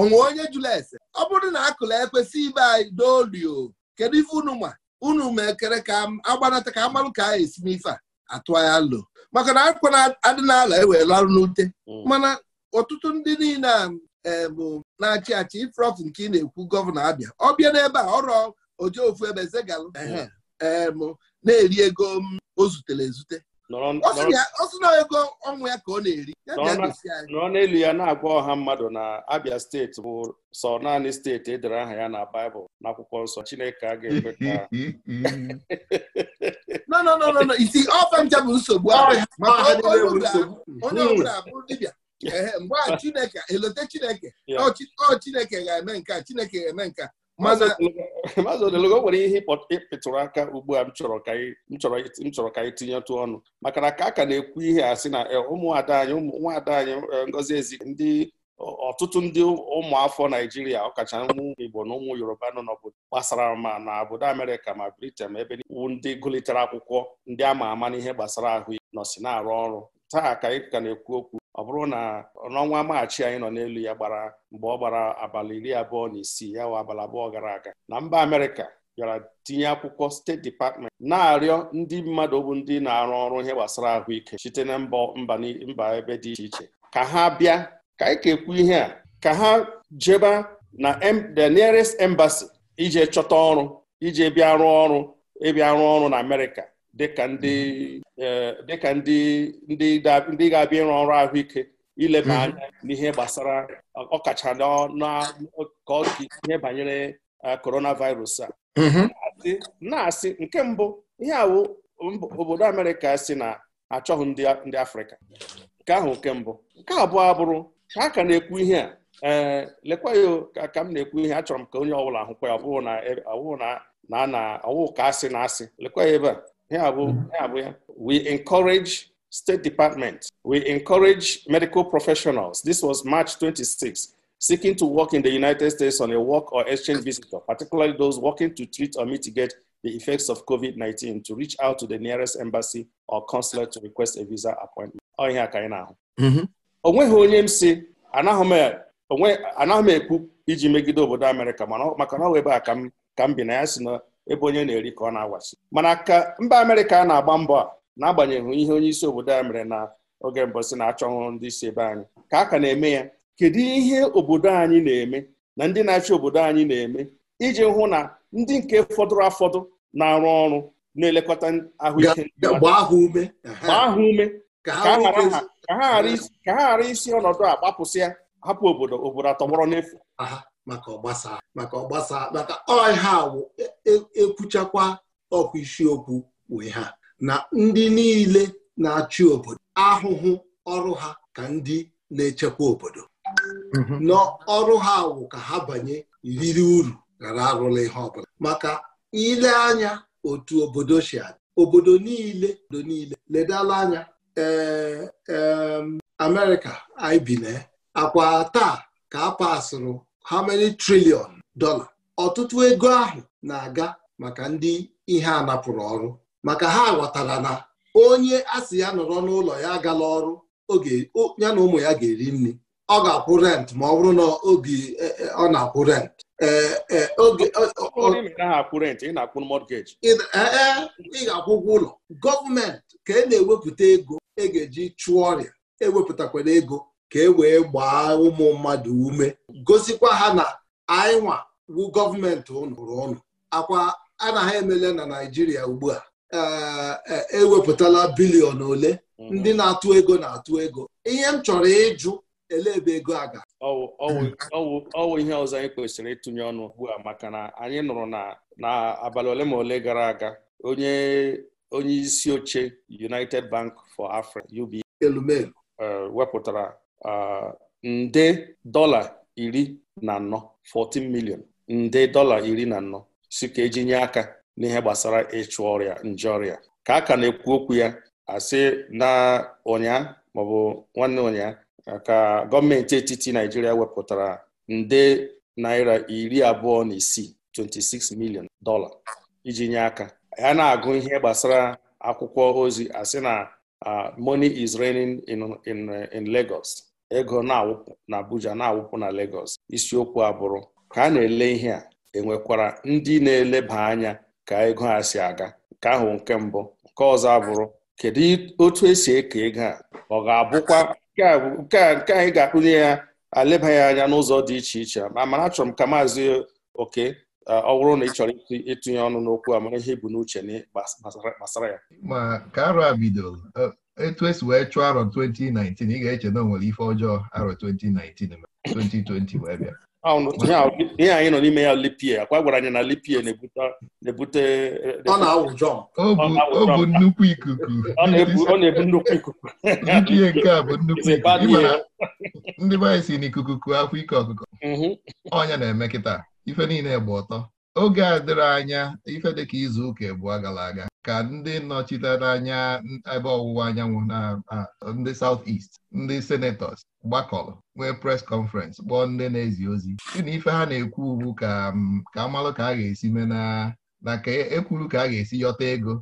onwe onye jụla ese ọ bụrụ na akụla ekwesị ibe anyị dolio kedu ife unu ma unu ma ekere ka agbanata ka amalụ ka anyị esi n'ife a atụ alụ maka na akwa na-adị n'ala ewela arụ n'ute mm. mana ọtụtụ ndị niile a bụ na-achị achị ifrọfụ nke ị na-ekwu gọvanọ abịa ọ bịa n'ebe a ọrụ oje ofu ebe zegalụ em na-eri ego o zutere ezute ọ sị na ego ọnwụ ya ka ọ na-eri nọrọ n'elu ya na-agwa ọha mmadụ na Abia steeti bụ sọ naanị steeti edere aha ya na Baịbụl n'akwụkwọ nsọ Chineke a ga-ekwe ka no no no no isi ọfa ncha bụ nsogbu onye hmm. ọbụla bụ dibịa mgbe a (laughs) Chineke elote Chineke ọ Chineke ga-eme nke a Chineke ga-eme nke a maazị odelogo nwere ihe ịpịtụrụ aka ugbu a m chọrọ ka anyị tinyetụ ọnụ maka na ka a ka na-ekwu ihe a sị na e, ụmụada anyị ụmụnwaada anyị e, ngozi ezi ndị ọtụtụ ndị ụmụafọ naijiria ọkacha ụmụ igbo na ụmụ yoruba nọ n'obodo gbasara ma na obodo amerịka ma briten ebe iwu ndị gụlitere akwụkwọ ndị ama ama n'ihe gbasara ahụ nọsi na-arụ ọrụ taa ka anyị ka na-ekwu okwu ọ bụrụ na n'ọnwa maachị anyị nọ n'elu ya gbara mgbe ọ gbara abalị iri abụọ na isii ya wa abalị abụọ gara aga na mba Amerịka bịara tinye akwụkwọ steeti dipatment na-arịọ ndị mmadụ bụ ndị na-arụ ọrụ ihe gbasara ahụike site na mba ebe dị iche iche ka ha bịa ka anyị ekwu ihe a ka ha jeba na the nearest embassy ije chọta ọrụ ije bịa rụọ ọrụ ịbịa rụọ ọrụ na Amerịka Mhm. Eh, dịka ndị ndị ndị ga-abịa ịrụ ọrụ ahụike ileba mhm. anya n'ihe gbasara ọkacha ka ọ ihe banyere eh, coronavirus a mhm. na-asị nke mbụ ihe awụ obodo Amerịka si na achọghị ndị Afrịka nke ahụ nke mbụ nke abụọ bụrụ ka a ka na-ekwu ihe a ee eh, lekwa ya ka m na-ekwu ihe achọrọ m ka onye ọbụla hụkwa ya ọ na na na ọwụ ka asị na asị lekwa ya ebe a Yeah, we, mm-hmm. yeah, we, we encourage State Department, we encourage medical professionals. This was March 26, seeking to work in the United States on a work or exchange visitor, particularly those working to treat or mitigate the effects of COVID 19, to reach out to the nearest embassy or consulate to request a visa appointment. Ọ ihe aka anyị na-ahụ. O nweghị onye m si e, anaghị m ekwu iji megide obodo Amerịka maka na ọ ebe a ka m bi na ya si na ebe onye na-eri ka ọ na-awasi mana ka mba Amerịka na-agba mbọ a na-agbanyeghị ihe onye isi obodo a mere na oge mbụ si na-achọ ọhụrụ ndị isi ebe anyị ka a ka na-eme ya kedu ihe obodo anyị na-eme na ndị na-achị obodo anyị na-eme iji hụ na ndị nke fọdụrụ afọdụ na-arụ ọrụ na-elekọta ahụike gbaa ha ume ka ha ghara isi ọnọdụ a gbapụsịa hapụ obodo obodo atọgbọrọ n'efu maka ọgbasa maka ọgbasa maka ọha wụ ekwuchakwa e, e ọkwa isiokwu wee ha na ndị niile na-achị obodo ahụhụ ọrụ ha ka ndị na-echekwa obodo mm-hmm. na ọrụ ha wụ ka ha banye riri uru ghara arụla ihe ọbụla maka ile anya otu obodo si adị obodo niile obodo niile ledala anya ee Amerịka anyị na akwa taa ka a how many trillion dollar ọtụtụ ego ahụ na-aga maka ndị ihe a napụrụ ọrụ maka ha ghọtara na onye a ya nọrọ n'ụlọ ya agala ọrụ ya na ụmụ ya ga-eri nri ọ ga-akwụ rent ma ọ bụrụ na obi e, e, ọ na-akwụ rent ị ga-akwụ ụgwọ ụlọ gọọmenti ka e na-ewepụta ego e ga-eji chụọ ọrịa ewepụtakwara ego ka e wee gbaa ụmụ mmadụ ume gosikwa ha na anyịnwa wu gọọmenti ụnụ Akwa a na ha emele na Naijiria ugbu a ewepụtala eh, eh, e bilion ole mhm. ndị na-atụ ego na-atụ ego ihe m chọrọ ịjụ ele ebe ego a ga ọwụ ihe ọzọ anyị kwesịrị ịtụnye ọnụ ugbu a maka na anyị nụrụ na abalị ole ma ole gara aga onye onye isi oche United Bank for Africa UBA elumelu eh, wepụtara Uh, nde dọla iri na anọ 14 milion nde dọla iri na anọ si ka eji nye aka n'ihe gbasara ịchụ ọrịa nje ọrịa ka a ka na-ekwu okwu ya asị na ụnya maọbụ nwanne ụnya ka gọọmenti etiti Naijiria wepụtara nde naira iri abụọ na isii 26 milion dọla iji nye aka ya na-agụ ihe gbasara akwụkwọ ozi asị na uh, money is raining in in in Lagos ego na-awụpụ na Abuja na-awụpụ na Lagos isiokwu abụrụ ka a na-ele ihe a enwekwara ndị na-eleba anya ka ego a si aga nke ahụ nke mbụ nke ọzọ abụrụ kedu otu esi eke ego a ọ ga-abụkwa nke anyị ga-akpụnye ya alebaghị anya n'ụzọ dị iche iche ma mana achọrọ m ka maazị oke ọ bụrụ na ị chọrọ ịtụnye ọnụ n'okwu amara ihe bụ n'uche gbasara ya ma ka arụ a bidoro etu esi wee chụọ arọ 2019 ị ga-eche na o nwere ife ọjọọ arọ 2019 2020 wee bịa ah, ihe anyị nọ n'ime ya lipie akwa gwara anyị na lipie na-ebute ọ bụ nnukwu ikuku ọ na-ebu nnukwu ikuku lipie nke a bụ nnukwu ikuku ndị be si n'ikuku kuo afọ ike ọkụkọ mhm. ọnya na-eme kịta ife niile gba ọtọ oge a dịrị anya ife dịka izu ụka abụọ gara aga ka ndị nọchitere anya ebe ọwụwa anyanwụ na ndị South East ndị senatọs gbakọrọ nwee pres kọnferens kpọọ ndị na-ezi ozi na ife ha na-ekwu ugbu ka ka amalụ ka a ga-esi mee na na ka ekwuru e ka a ga-esi yọta ego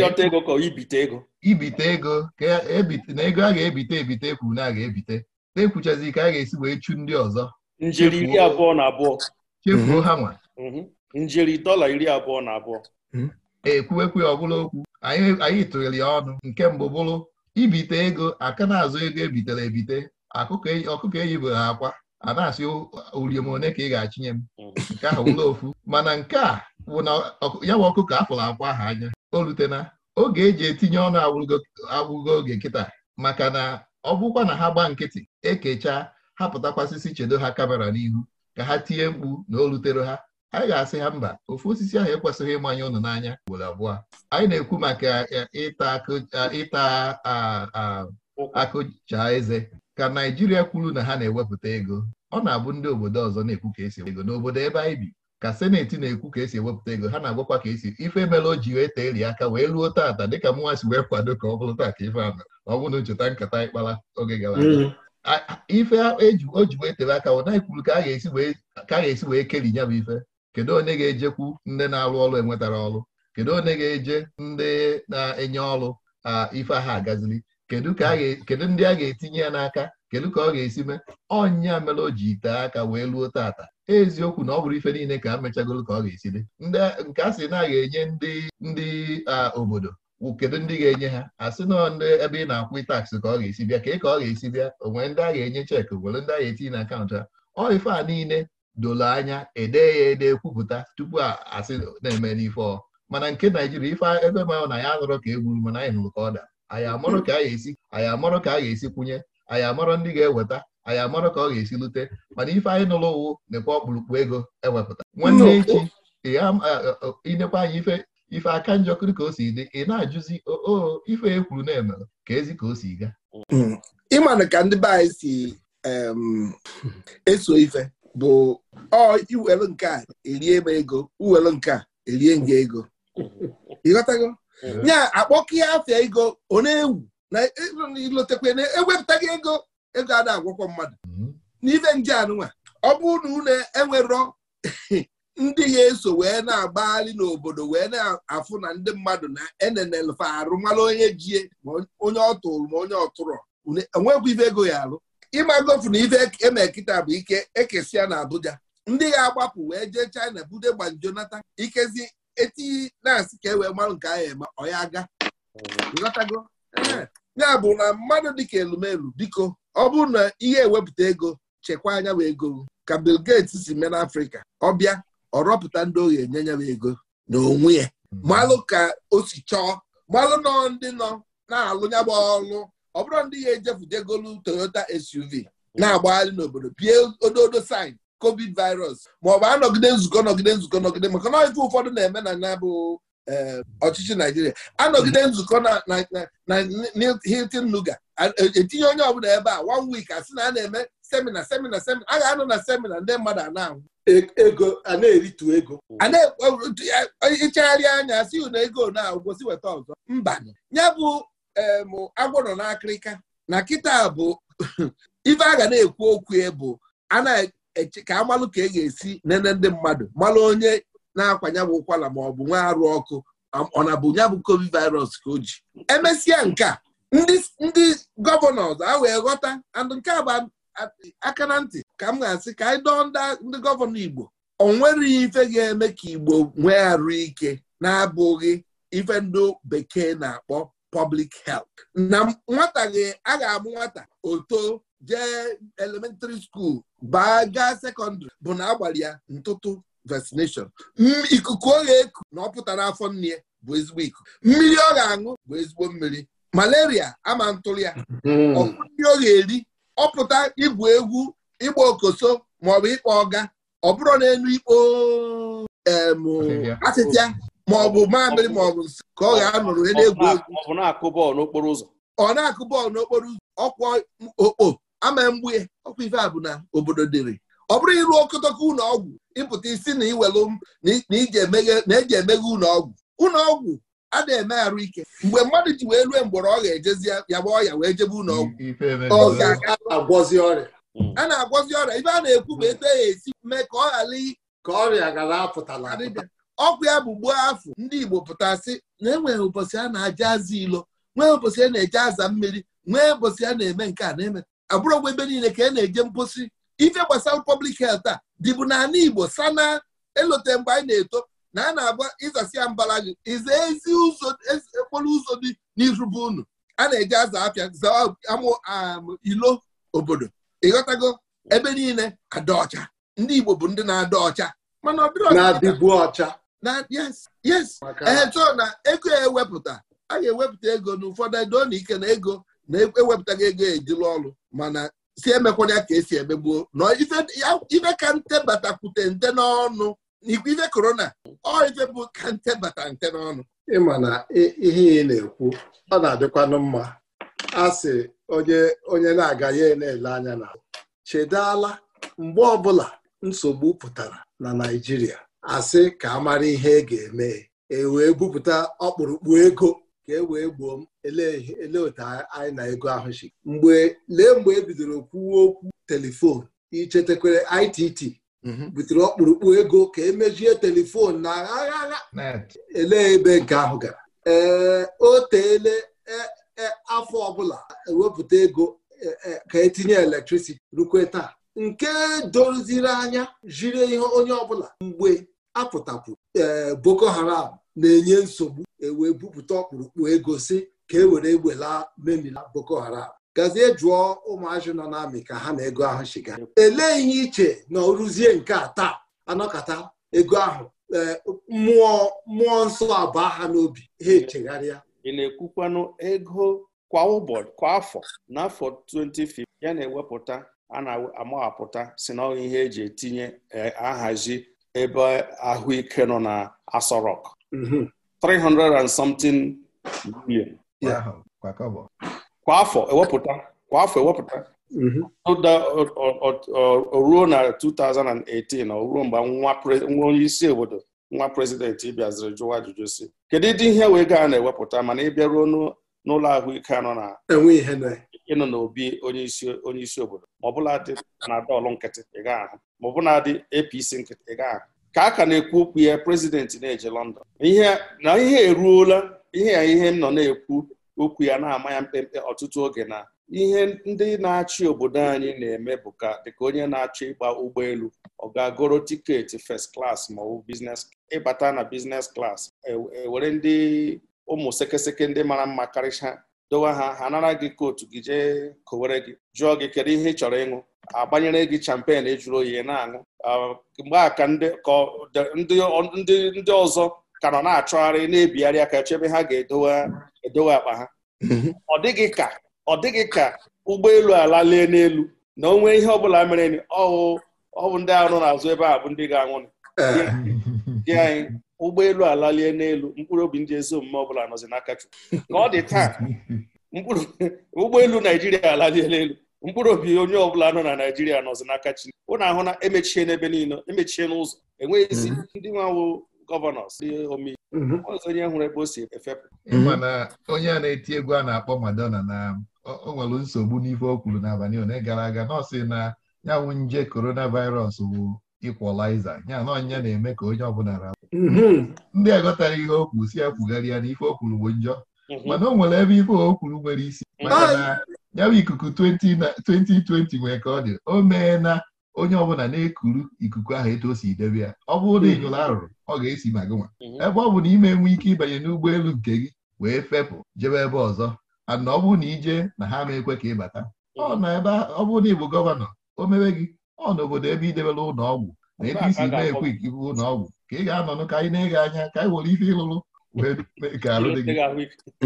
yọta ego ka ibite ego ibite ego ka e, e na ego a ga-ebite ebite ekwuru na a ga-ebite na ekwuchazi ka a ga-esi wee chu ndị ọzọ njiri iri abụọ na abụọ chefuo ha nwa Mhm. njeri dọla iri abụọ na abụọ hmm. ekwuwekwu ọbụla okwu anyị tụnyere ya ọnụ nke mbụ bụrụ ibite ego aka na-azụ ego ebitere ebite e, ọkụkọ eyibere ha akwa a na-asị one ka ị ga-achinye m hmm. nke ahụ wụla ofu mana nke a bụ na ya bụ ọkụkọ afụrụ akwa ha anya o rutena oge eji etinye ọnụ agwụgo oge nkịta maka na ọ bụkwa na ha gbaa nkịtị ekecha ha chedo ha kamera n'ihu ka ha tie mkpu na o rutere ha anyị ga-asị ya mba ofu osisi ahụ ekwesịghị ịmanye ụnụ n'anya ugboro abụọ anyị na-ekwu maka e, e, ịta akụcha eze ka Naijiria kwuru na ha na-ewepụta ego ọ na-abụ ndị obodo ọzọ na-ekwu ka esi ego n'obodo ebe anyị bi ka seneti na-ekwu ka esi ewepụta ego ha na-agwakwa ka esi ife mere o ji wee tee aka wee ruo taata dịka mụnwa si wee kwado ka ọ bụrụ taa ka ife ahụ ọ bụrụ na ncheta nkata ịkpara oge gara mm-hmm. ife e o ji wee tere aka ọ naghị kwuru ka a ga-esi wee keri ya bụ ife kedu onye ga-ejekwu ndị na-alụ ọrụ enwetara ọrụ kedu onye ga-eje ndị na-enye ọrụ ife aha agazili kedu ndị a ga-etinye ya n'aka kedu ka ọ ga-esi mee ọnya mere o ji ite aka wee luo tata eziokwu na ọ bụrụ ife niile ka a ka ọ ga-esi dị ndị nke a sị na ga-enye ndị ndị obodo kedu ndị ga-enye ha asị nọ ndị ebe ị na-akwụ taks ka ọ ga-esi bịa ka ị ka ọ ga-esi bịa onwere ndị a ga-enye cheki nwere ndị a ga-etinye na akaụntụ ha ọ ife a niile dolo anya ede ya ede kwupụta tupu asị na-eme n'ife mana nke naijiria ife ebe ma na ya nụrụ ka egwuru mana anyị nụrụ ka ọ da anyị amarọ ka a ga-esi anyị amarọ ka a ga-esi kwụnye anyị amarọ ndị ga-eweta anyị amarọ ka ọ ga-esi lute mana ife anyị nụrụ ụwụ nekwa ọkpụrụkpụ ego ewepụta nwanne echi inekwa anyị ife ife aka njọkịrị ka o si dị ị na-ajụzi o ife e na eme ka ezi ka o si gaa hmm. ịmanụ ka ndị be anyị si (laughs) eso ife bụ ọ iwere nke a erie m ego uwere nke a erie nga ego ịghọtago ya akpọkịa afịa ego ọ na-ewu na e, ilotekwe na ewepụtaghị ego ego a na-agwọkwọ mmadụ mhm. n'ife nje anụnwa ọ bụrụ na unu enwerọ (laughs) ndị ga-eso wee na-agbagharị n'obodo wee na-afụ na ndị mmadụ na enenelfa arụ mara onye jie ma onye ọ tụrụ ma onye ọ tụrụ onwekwa ife ego ya alụ. ịmagofu na ife e eme kịta bụ ike ekesi na Abuja ndị ga-agbapụ wee jee China bude gbanjonata ikezi eti na-asị ka e wee marụ nke ahụ eme ọya aga lọtago ya bụ na mmadụ dịka elumelu biko ọ bụrụ na ihe ewepụta ego chekwa anya bụ ego ka Bill Gates si mee n'Afrịka ọbịa ọ rọpụta ndị ohi enye nya ego na onwe ya malụ ka o si chọọ malụ nọ ndị nọ na-alụ bụ ọlụ ọ bụrụ ndị ya ejefudegolu Toyota SUV na-agbagharị n'obodo pie ododo sign covid virus ma ọ bụ anọgide nzukọ nọgide nzukọ nọgide maka na ife ụfọdụ na-eme na na bụ eh, ọchịchị Naijiria anọgide nzukọ na Hilton Nuga e, etinye onye ọbụla ebe a one asị na a na-eme semina semina semina a ga-anọ na semina ndị mmadụ a na-anwụ e, ego a na-eritu ego anya si na ego na-agwụsị weta ọzọ mba ya bụ emụ um, agwọ nọ n'akịrịka na kịta bụ (laughs) ife a ga na-ekwu okwu bụ a na ka amalụ ka e ga-esi nene ndị mmadụ malụ onye na-akwanye bụ ụkwala ma ọ bụ nwa arụ ọkụ ọ na bụ nyabụ covid virus ka o ji emesịa nke a ndị gọvanọ a wee ghọta and nke a bụ aka na ntị ka m ga-asị ka anyị dọọ ndị gọvanọ Igbo ọ nwereghị ife ga-eme ka Igbo nwee arụ ike na-abụghị ife ndị bekee na-akpọ public health na nwata gị a ga-abụ nwata oto jee elementary school baa gaa sekọndịrị bụ na agbalị ya ntụtụ vaccination ikuku ọ ga-eku na ọ pụtara afọ nne bụ ezigbo ikuku mmiri ọ ga-aṅụ bụ ezigbo mmiri malaria ama ntụrụ ya ọkụnri hmm. ọ ga-eri ọ pụta igwu egwu ịgba okoso maọbụ ịkpọ ọga ọ bụrụ na enu ikpo asịtịa maọbụ mamịrị maọbụ nsị ka ọ ga-anọrọ onye na-egwu egwu ọ na-akụ bọọlụ n'okporo ụzọ ọkwa okpo ama mgbu ya ọkwa ife a bụ na obodo dịrị ọ bụrụ ịrụ okotoko ụlọ ọgwụ ịpụta isi na iwelu na eji emeghe e ụlọ ọgwụ ụlọ ọgwụ a na-eme arụ ike mgbe mmadụ ji wee rue mgbọrọ ọ ga-ejezi ya gba ọya wee jebe ụlọ ọgwụ ga-agwọzi ọrịa hmm. a na-agwọzi ọrịa ife a na-ekwu ma eto ya e esi mee ka ọ ghara ka ọrịa apụtala ọkwa ya bụ gbuo afọ ndị Igbo pụtasị na enwere ụbọchị a na-aja aza ilo nwee ụbọchị a na-eje aza mmiri nwee ụbọchị a na-eme nke a na-eme abụrụgwa ebe niile ka a e na-eje mposi ife gbasara pọblik health a dịbụ n'ala Igbo sana elote mgbe anyị na-eto na a na-agba ịzasị ya mbara gị iza ezi ụzọ okporo ụzọ dị n'irube bụ unu a na-eje aza afịa amụ um, ilo obodo ịghọtago ebe niile ada ọcha ndị Igbo bụ ndị na-ada ọcha mana ọ dịrị ọcha na yes yes na ego ewepụta a ga-ewepụta ego n'ụfọdụ edo na ike na ego na-ewepụtaghị e, ego ejila ọrụ mana si ya ka esi emegbuo na ife ka ntebatakwute nte n'ọnụ ife korona ọ ife bụ ka bata nte n'ọnụ ịma na ihe ị na-ekwu ọ na-adịkwanụ mma a sị onye na-aga ya na-ele anya na chedala mgbe ọbụla nsogbu pụtara na Naịjirịa asị ka a mara ihe e ga-eme e wee bupụta ọkpụrụkpụ ego ka e wee gboo m ele otu anyị na ego ahụ si mgbe lee mgbe e bidoro kwuwe okwu telifon ichetakwere ITT mhm. butere ọkpụrụkpụ ego ka emejie telifon na agha ele ebe nke ahụ gara ee o teele e, e, afọ ọbụla ewepụta ego ka etinye elektrisiti rukwe taa nke doziri anya jiri ihe onye ọbụla mgbe apụtapụ ee eh, Boko Haram na-enye nsogbu ewee bupụta ọkpụrụkpụ ego si ka e were ewela memila Boko Haram gazie jụọ ụmụazị nọ n'amị ka ha na ego ahụ shiga elee ihe iche na ọrụzie nke a taa anọkata ego ahụ eh, mmụọ mmụọ nsọ abụọ ha n'obi ha echegharịa ị na-ekwukwanụ ego kwa ụbọchị kwa afọ n'afọ 2015 ya na-ewepụta a na-amahapụta si na ihe eji etinye e, ahazi ebe ahụike nọ na Aso Rock 300 and something million kwa afọ ewepụta kwa afọ ewepụta mm-hmm. ruo na 2018 o ruo mgbe nwa onye isi obodo nwa prezidenti bịaziri jụwa ajụjụ si kedu ịdị ihe wee gaa na-ewepụta mana ị ruo n'ụlọ ahụike nọ na enwe ihe ịnọ n'obi onye isi obodo ma dị panadọlụ nkịtị ị gaghị ahụ ma ọbụla dị APC nkịtị ị ahụ ka a ka na-ekwu okwu ya prezidenti na-eje London na ihe eruola ihe ya ihe m nọ na-ekwu okwu ya na-ama ya mkpemkpe ọtụtụ oge na ihe ndị na-achị obodo anyị na-eme bụ ka dịka onye na-achọ ịgba ụgbọelu ọ ga-agoro tiketi first klas ma ọ bụ ịbata na business klas ewere e, ndị ụmụ sekeseke ndị mara mma karịcha dowe ha ha nara gị kootu gị jee kowere gị jụọ gị kedu ihe ị chọrọ ịṅụ agbanyere gị champen ejuru oyi na-aṅụ ah, mgbe a ka ndị ọzọ ka nọ na-achọgharị na-ebigharị aka chebe ha ga-edowe akpa ha mm-hmm. ọ dịghị ka ọ dịghị ka ụgbọelu ala lee n'elu na onwe ihe ọbụla mere ọ bụ ndị arụ n'azụ ebe a bụ ndị ga-anwụ eh. anyị ụgbọelu alalie n'elu mkpụrụ obi ndị ezi omume ọbụla nọzi n'aka Chukwu ka ọ dị taa ụgbọelu naijiria alaliela n'elu mkpụrụ obi onye ọbụla nọ na naijiria nọzi n'aka chi ụnụ ahụ na emechie n'ebe niile emechie n'ụzọ enweghịzi mhm. ndị nwawo gọvanọs ndị mhm. onye hụrụ ebe o si efepụ mana onye a na-eti egwu a na-akpọ Madonna na o nwere nsogbu n'ife o kwuru n'abalị ole gara aga nọọsị na ya nwụ nje coronavirus bụ ịkwọlaiza ya na ọnyịnya na-eme ka onye ọbụla ra mhm. ndị aghọtara ihe o kwu si ekwugharị ya na ife o bụ njọ mhm. mana o nwere ebe ife okwuru nwere isi mhm. maka na ya bụ ikuku 2020 nwee ka ọ dị o mee na onye ọbụla na-ekuru ikuku ahụ etu si debe ya ọ bụrụ na ịnyụrụ arụrụ ọ ga-esi ma gị nwa ebe ọ bụ na ime enwe ike ịbanye n'ụgbọelu nke gị wee fepụ jebe ebe ọzọ ana ọ bụrụ na ije na ha ma ekwe ka ịbata ọ na ebe ọ bụrụ na ị gọvanọ o mewe gị ọ n'obodo ebe idebere ụlọ ọgwụ na ebe isi na-ekwe ikibu ụlọ ka ị ga-anọnụ ka anyị na-ege anya ka anyị were ife ịlụrụ wee mee alụ dị gị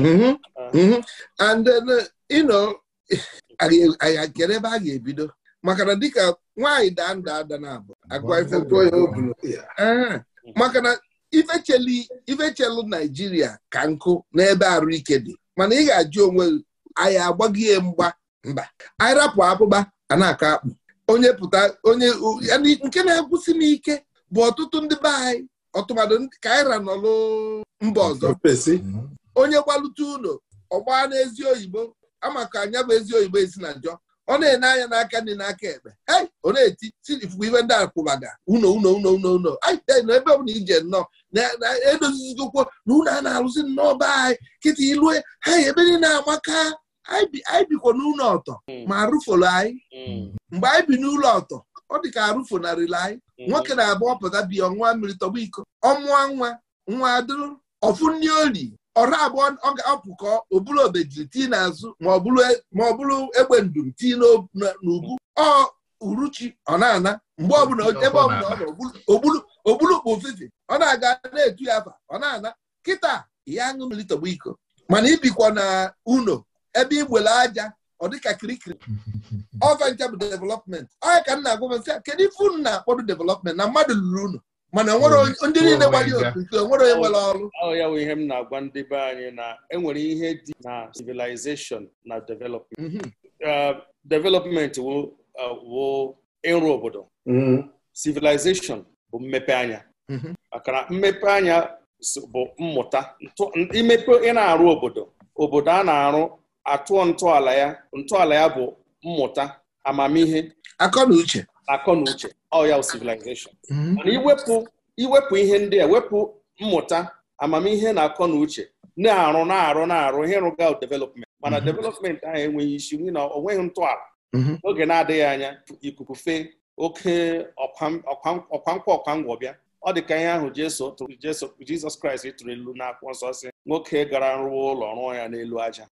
mm-hmm, ah. mm-hmm. and then you know anyị kere ebe a ga-ebido maka na dịka nwaanyị daa nda ada na abụ agwa ife tụọ ya obulu maka na ifechelu naijiria ka nkụ n'ebe arụike dị mana ị ga-ajụ onwe anyị agbaghị mgba mba anyị rapụ akpụkpa a na-akọ akpụ onye pụta onye nke na-ekwusi n'ike bụ ọtụtụ ndị be anyị ọtụmadụ ka aịra nọlụ mba ọzọ onye gbalute ụlọ ọgba n'ezi oyibo amaka anya bụ ezi oyibo esi na njọ ọ na-ene anya n'aka ndị n'aka ekpe ei ọ na-eti ifufe iwe ndị akwụbaga uno uno uno uno uno na ebe ọbụla ije nnọọ na-edozizigokwo na unu a na-arụzi nnọọ be anyị kịta ilue ha ebe niile amaka anyị bikwa n'ụlọ ọtọ hmm. ma arụfolo anyị hmm. mgbe anyị bi n'ụlọ ọtọ ọ dị ka arụfonarịla anyị hmm. nwoke na-abụ ọpụta bi ọnwa mmiri tọgbọ iko ọmụọ nwa nwa adịrụ ọfụ ndị oli ọra abụọ ọ ga-apụkọ oburu obejiri tii n'azụ ma ọ bụrụ e, egbe ndum tii n'ugwu. ọ uruchi ọ na-ana mgbe ọbụla ebe ọbụla ọ nọ ogbulukpu ofefe ọ na-aga na-etu ya afa ọ na-ana kịta ya aṅụ mmiri tọgba iko mana ibikwa na uno ebe igbele aja ọ dịka kirikiri (laughs) ọvancha bụ development anya ka nna agwa nsị kedu ife unu na-akpọdụ development na mmadụ lụrụ unu mana e oh, ndị niile oh gbara otu nke onwere onye nwere ọrụ ya bụ ihe m na-agwa ndị be anyị na enwere ihe dị na civilization na development mhm. uh, development wo uh, ịrụ obodo mhm. civilization bụ mmepe anya mhm. maka mmepe anya bụ mmụta imepe ị na-arụ obodo obodo a na-arụ atụọ ntọala ya ntọala ya bụ mmụta amamihe akọ na uche akọ na uche ọ civilization mhm. mana iwepụ iwepụ ihe ndị a wepụ mmụta amamihe na akọ na uche na-arụ na-arụ na-arụ ihe rụga development mana mhm. development ahụ enweghị isi n'ihi na ọ nweghị ntọala n'oge mhm. na-adịghị anya ikuku fee oke ọkwankwa ọkwangwọ bịa ọ dị ka ihe ahụ Jizọs Kraịst tụrụ ilu n'akwụkwọ nsọ si nwoke gara rụwa ụlọ rụọ ya n'elu aja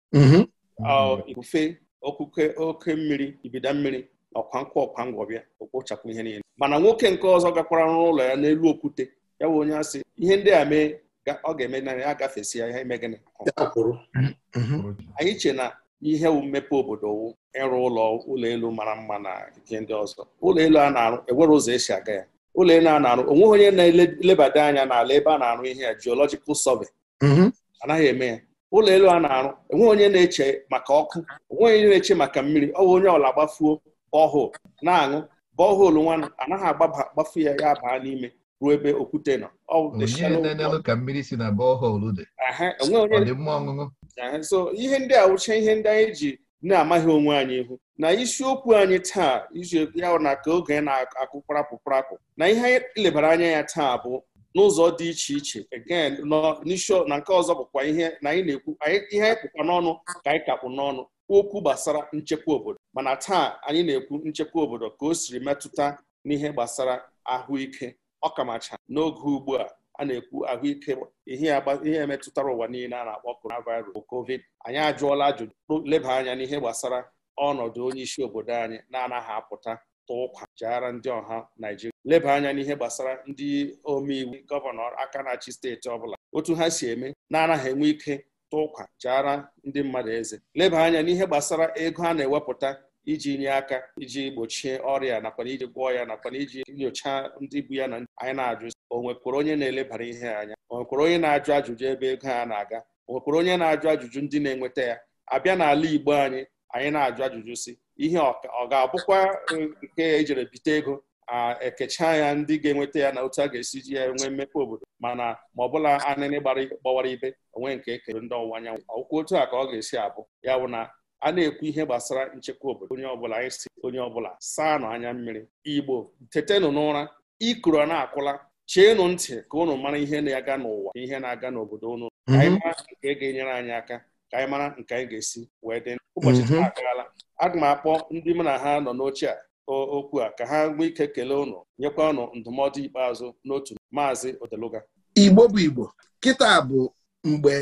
ifufe okuke oke mmiri ibida mmiri na ọkwa nkwọ ọkwa ngwọbịa bịa ihe niile mana nwoke nke ọzọ gakwara n'ụlọ ya n'elu okwute ya bụ onye asị ihe ndị a mee ọ ga-eme na ya agafesi ya ihe gịnị mhm. anyị che na ihe mmepe obodo wụ ịrụ ụlọ ụlọ elu mara mma na ihe ndị ọzọ ụlọ elu a na-arụ enwere ụzọ esi aga ya ụlọ elu a na-arụ onweghị onye na-elebada anya n'ala ebe a na-arụ ihe ya geological survey mhm. anaghị eme ya ụlọ elu a na-arụ enweghị onye na-eche maka ọkụ onwe e onye na-eche maka mmiri ọ bụ onye ọla gbafuo bọhol na-aṅụ bọhol nwa anaghị agbafu ya ya baa n'ime ruo ebe okwute nọ so ihe ndị a wụcha ihe ndị anyị ji na-amaghị onwe anyị ihu na isiokwu anyị taa izu ya na ka oge na akụ prapụprapụ na ihe anyị lebara anya ya taa bụ n'ụzọ dị iche iche again n'isi na nke ọzọ bụkwa ihe na anyị na-ekwu ihe anyị kpụkwa n'ọnụ ka anyị kakpụ n'ọnụ okwu gbasara nchekwa obodo mana taa anyị na-ekwu nchekwa obodo ka o siri metụta n'ihe gbasara ahụike ọkamacha n'oge ugbu a a na-ekwu ahụike ihe metụtara ụwa niile a na-akpọ coronavirus bụ covid anyị ajụọla ajụjụ leba anya n'ihe gbasara ọnọdụ onye isi obodo anyị na-anaghị apụta tụọ ụkwa ndị ọha naijiria. leba anya n'ihe gbasara ndị omeiwu gọvanọ aka na-achị steeti ọbụla otu ha si eme na-anaghị enwe ike tụ ụkwa jiara ndị mmadụ eze leba anya n'ihe gbasara ego a na-ewepụta iji nye aka iji gbochie ọrịa nakwa iji gwọọ ya nakwa iji nyochaa ndị bụ ya na anyị na-ajụ o nwekwara onye na-elebara ihe anya o nwekwara onye na-ajụ ajụjụ ebe ego a na-aga o nwekwara onye na-ajụ ajụjụ ndị na-enweta ya abịa n'ala Igbo anyị anyị na-ajụ ajụjụ si ihe ọ ga-abụkwa nke ejere bite ego a ekecha ya ndị ga-enweta ya na otu a ga-esi ji ya nwee mmepe obodo mana ma ọbụla anịnị gbawara ibe onwe nke ekere ndị ọwụwa anyanwụ ọkwụ otu a ka ọ ga-esi abụ ya bụ na a na-ekwu ihe gbasara nchekwa obodo onye ọbụla anyị si onye ọbụla saa nụ anya mmiri igbo tetenụ n'ụra ikuru na-akwụla cheenụ ntị ka unu mara ihe na-aga n'ụwa ihe na-aga n'obodo unu mhm. anyị mara nke ga-enyere anyị aka ka anyị mara nke anyị ga-esi wee dị ụbọchị mhm. taa agaala aga m akpọ ndị mụ na ha nọ n'oche a okwu a ka ha nwee ike kelee ụnụ nyekwa ụnụ ndụmọdụ ikpeazụ n'otu maazị odeluga igbo bụ igbo kịta bụ mgbe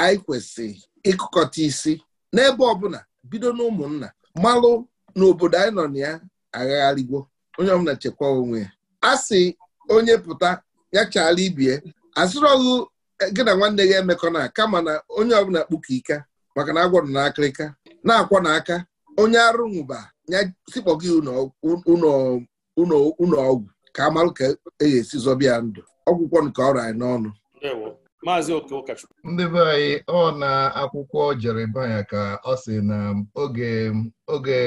anyị kwesịrị ịkụkọta isi n'ebe ọbụla bido n'ụmụnna malụ n'obodo anyị nọ na ya agagharịgwo onye ọbụla chekwa onwe ya a sị onye pụta ya chaala ibie asịrọghụ Eh, gị na nwanne ya emekọ na kama na onye ọbụla kpuka ike maka na agwọrọ na akịrịka na-akwọ n'aka onye arụ nwụba ya sikpọ gị ụlọ ọgwụ ka amarụ ka e esi zọbịa ndụ ọgwụkwọ nke ọrụ anyị n'ọnụ ndị be anyị ọ na akwụkwọ Jeremaya ka ọ sị na oge oge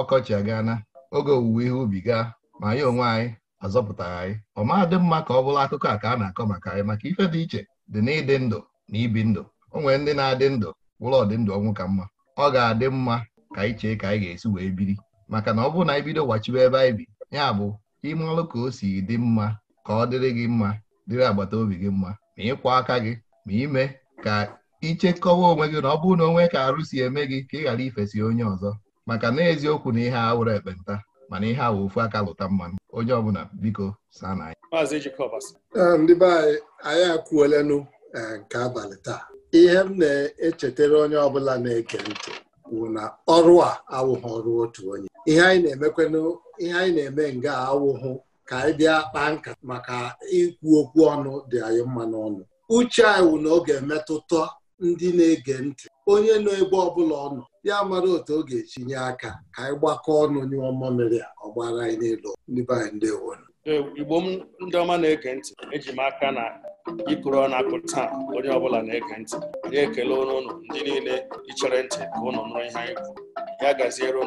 ọkọchị na oge owuwe ihe ubi gaa ma anyị onwe anyị azọpụtara anyị ọ ma dị mma ka ọ bụrụ akụkọ a ka a na-akọ maka anyị maka ife dị iche dị n'ịdị ndụ na ibi ndụ o nwere ndị na-adị ndụ wụrụ ọdịndụ ọnwụ ka mma ọ ga-adị mma ka anyị chee ka anyị ga-esi wee biri maka na ọ bụrụ na anyị bido gbachibe ebe anyị bi ya bụ ime ọrụ ka o si dị mma ka ọ dịrị gị mma dịrị agbata obi gị mma ma ịkwụ aka gị ma ime ka ichekọwa onwe gị na ọ bụrụ na onwe ka arụ si eme gị ka ị ghara ifesi onye ọzọ maka na eziokwu na ihe awụrụ ekpenta mana ihe awụ ofu aka lụta mmanụ onye ọbụla biko saa na ndị be anyị anyị akwuolenụ e, nke abalị taa ihe m na-echetara onye ọbụla na-eke ntị bụ na ọrụ a awụghị ọrụ otu onye ihe anyị na-emekwenụ ihe anyị na-eme nga awụghụ ka anyị bịa kpaa nka maka ikwu okwu ọnụ dị anyị mma n'ọnụ uche anyị wụ na ọ ga-emetụta ndị na-ege ntị onye nọ ebe ọbụla ọ nọ ya mara otu ọ ga-etinye aka ka anyị gbakọọ ọnụ ọma mmamịrị a ọ gbara anyị n'elu n'ebe anyị ndewo e, igbo m ndị ọma na-ege ntị eji m aka na ịkụrụ ọnụ akụ taa onye ọbụla na-ege ntị ya ekele ụnụ ndị niile ichere ntị ka ụnụ nụrụ ihe anyị kwuru ya gaziere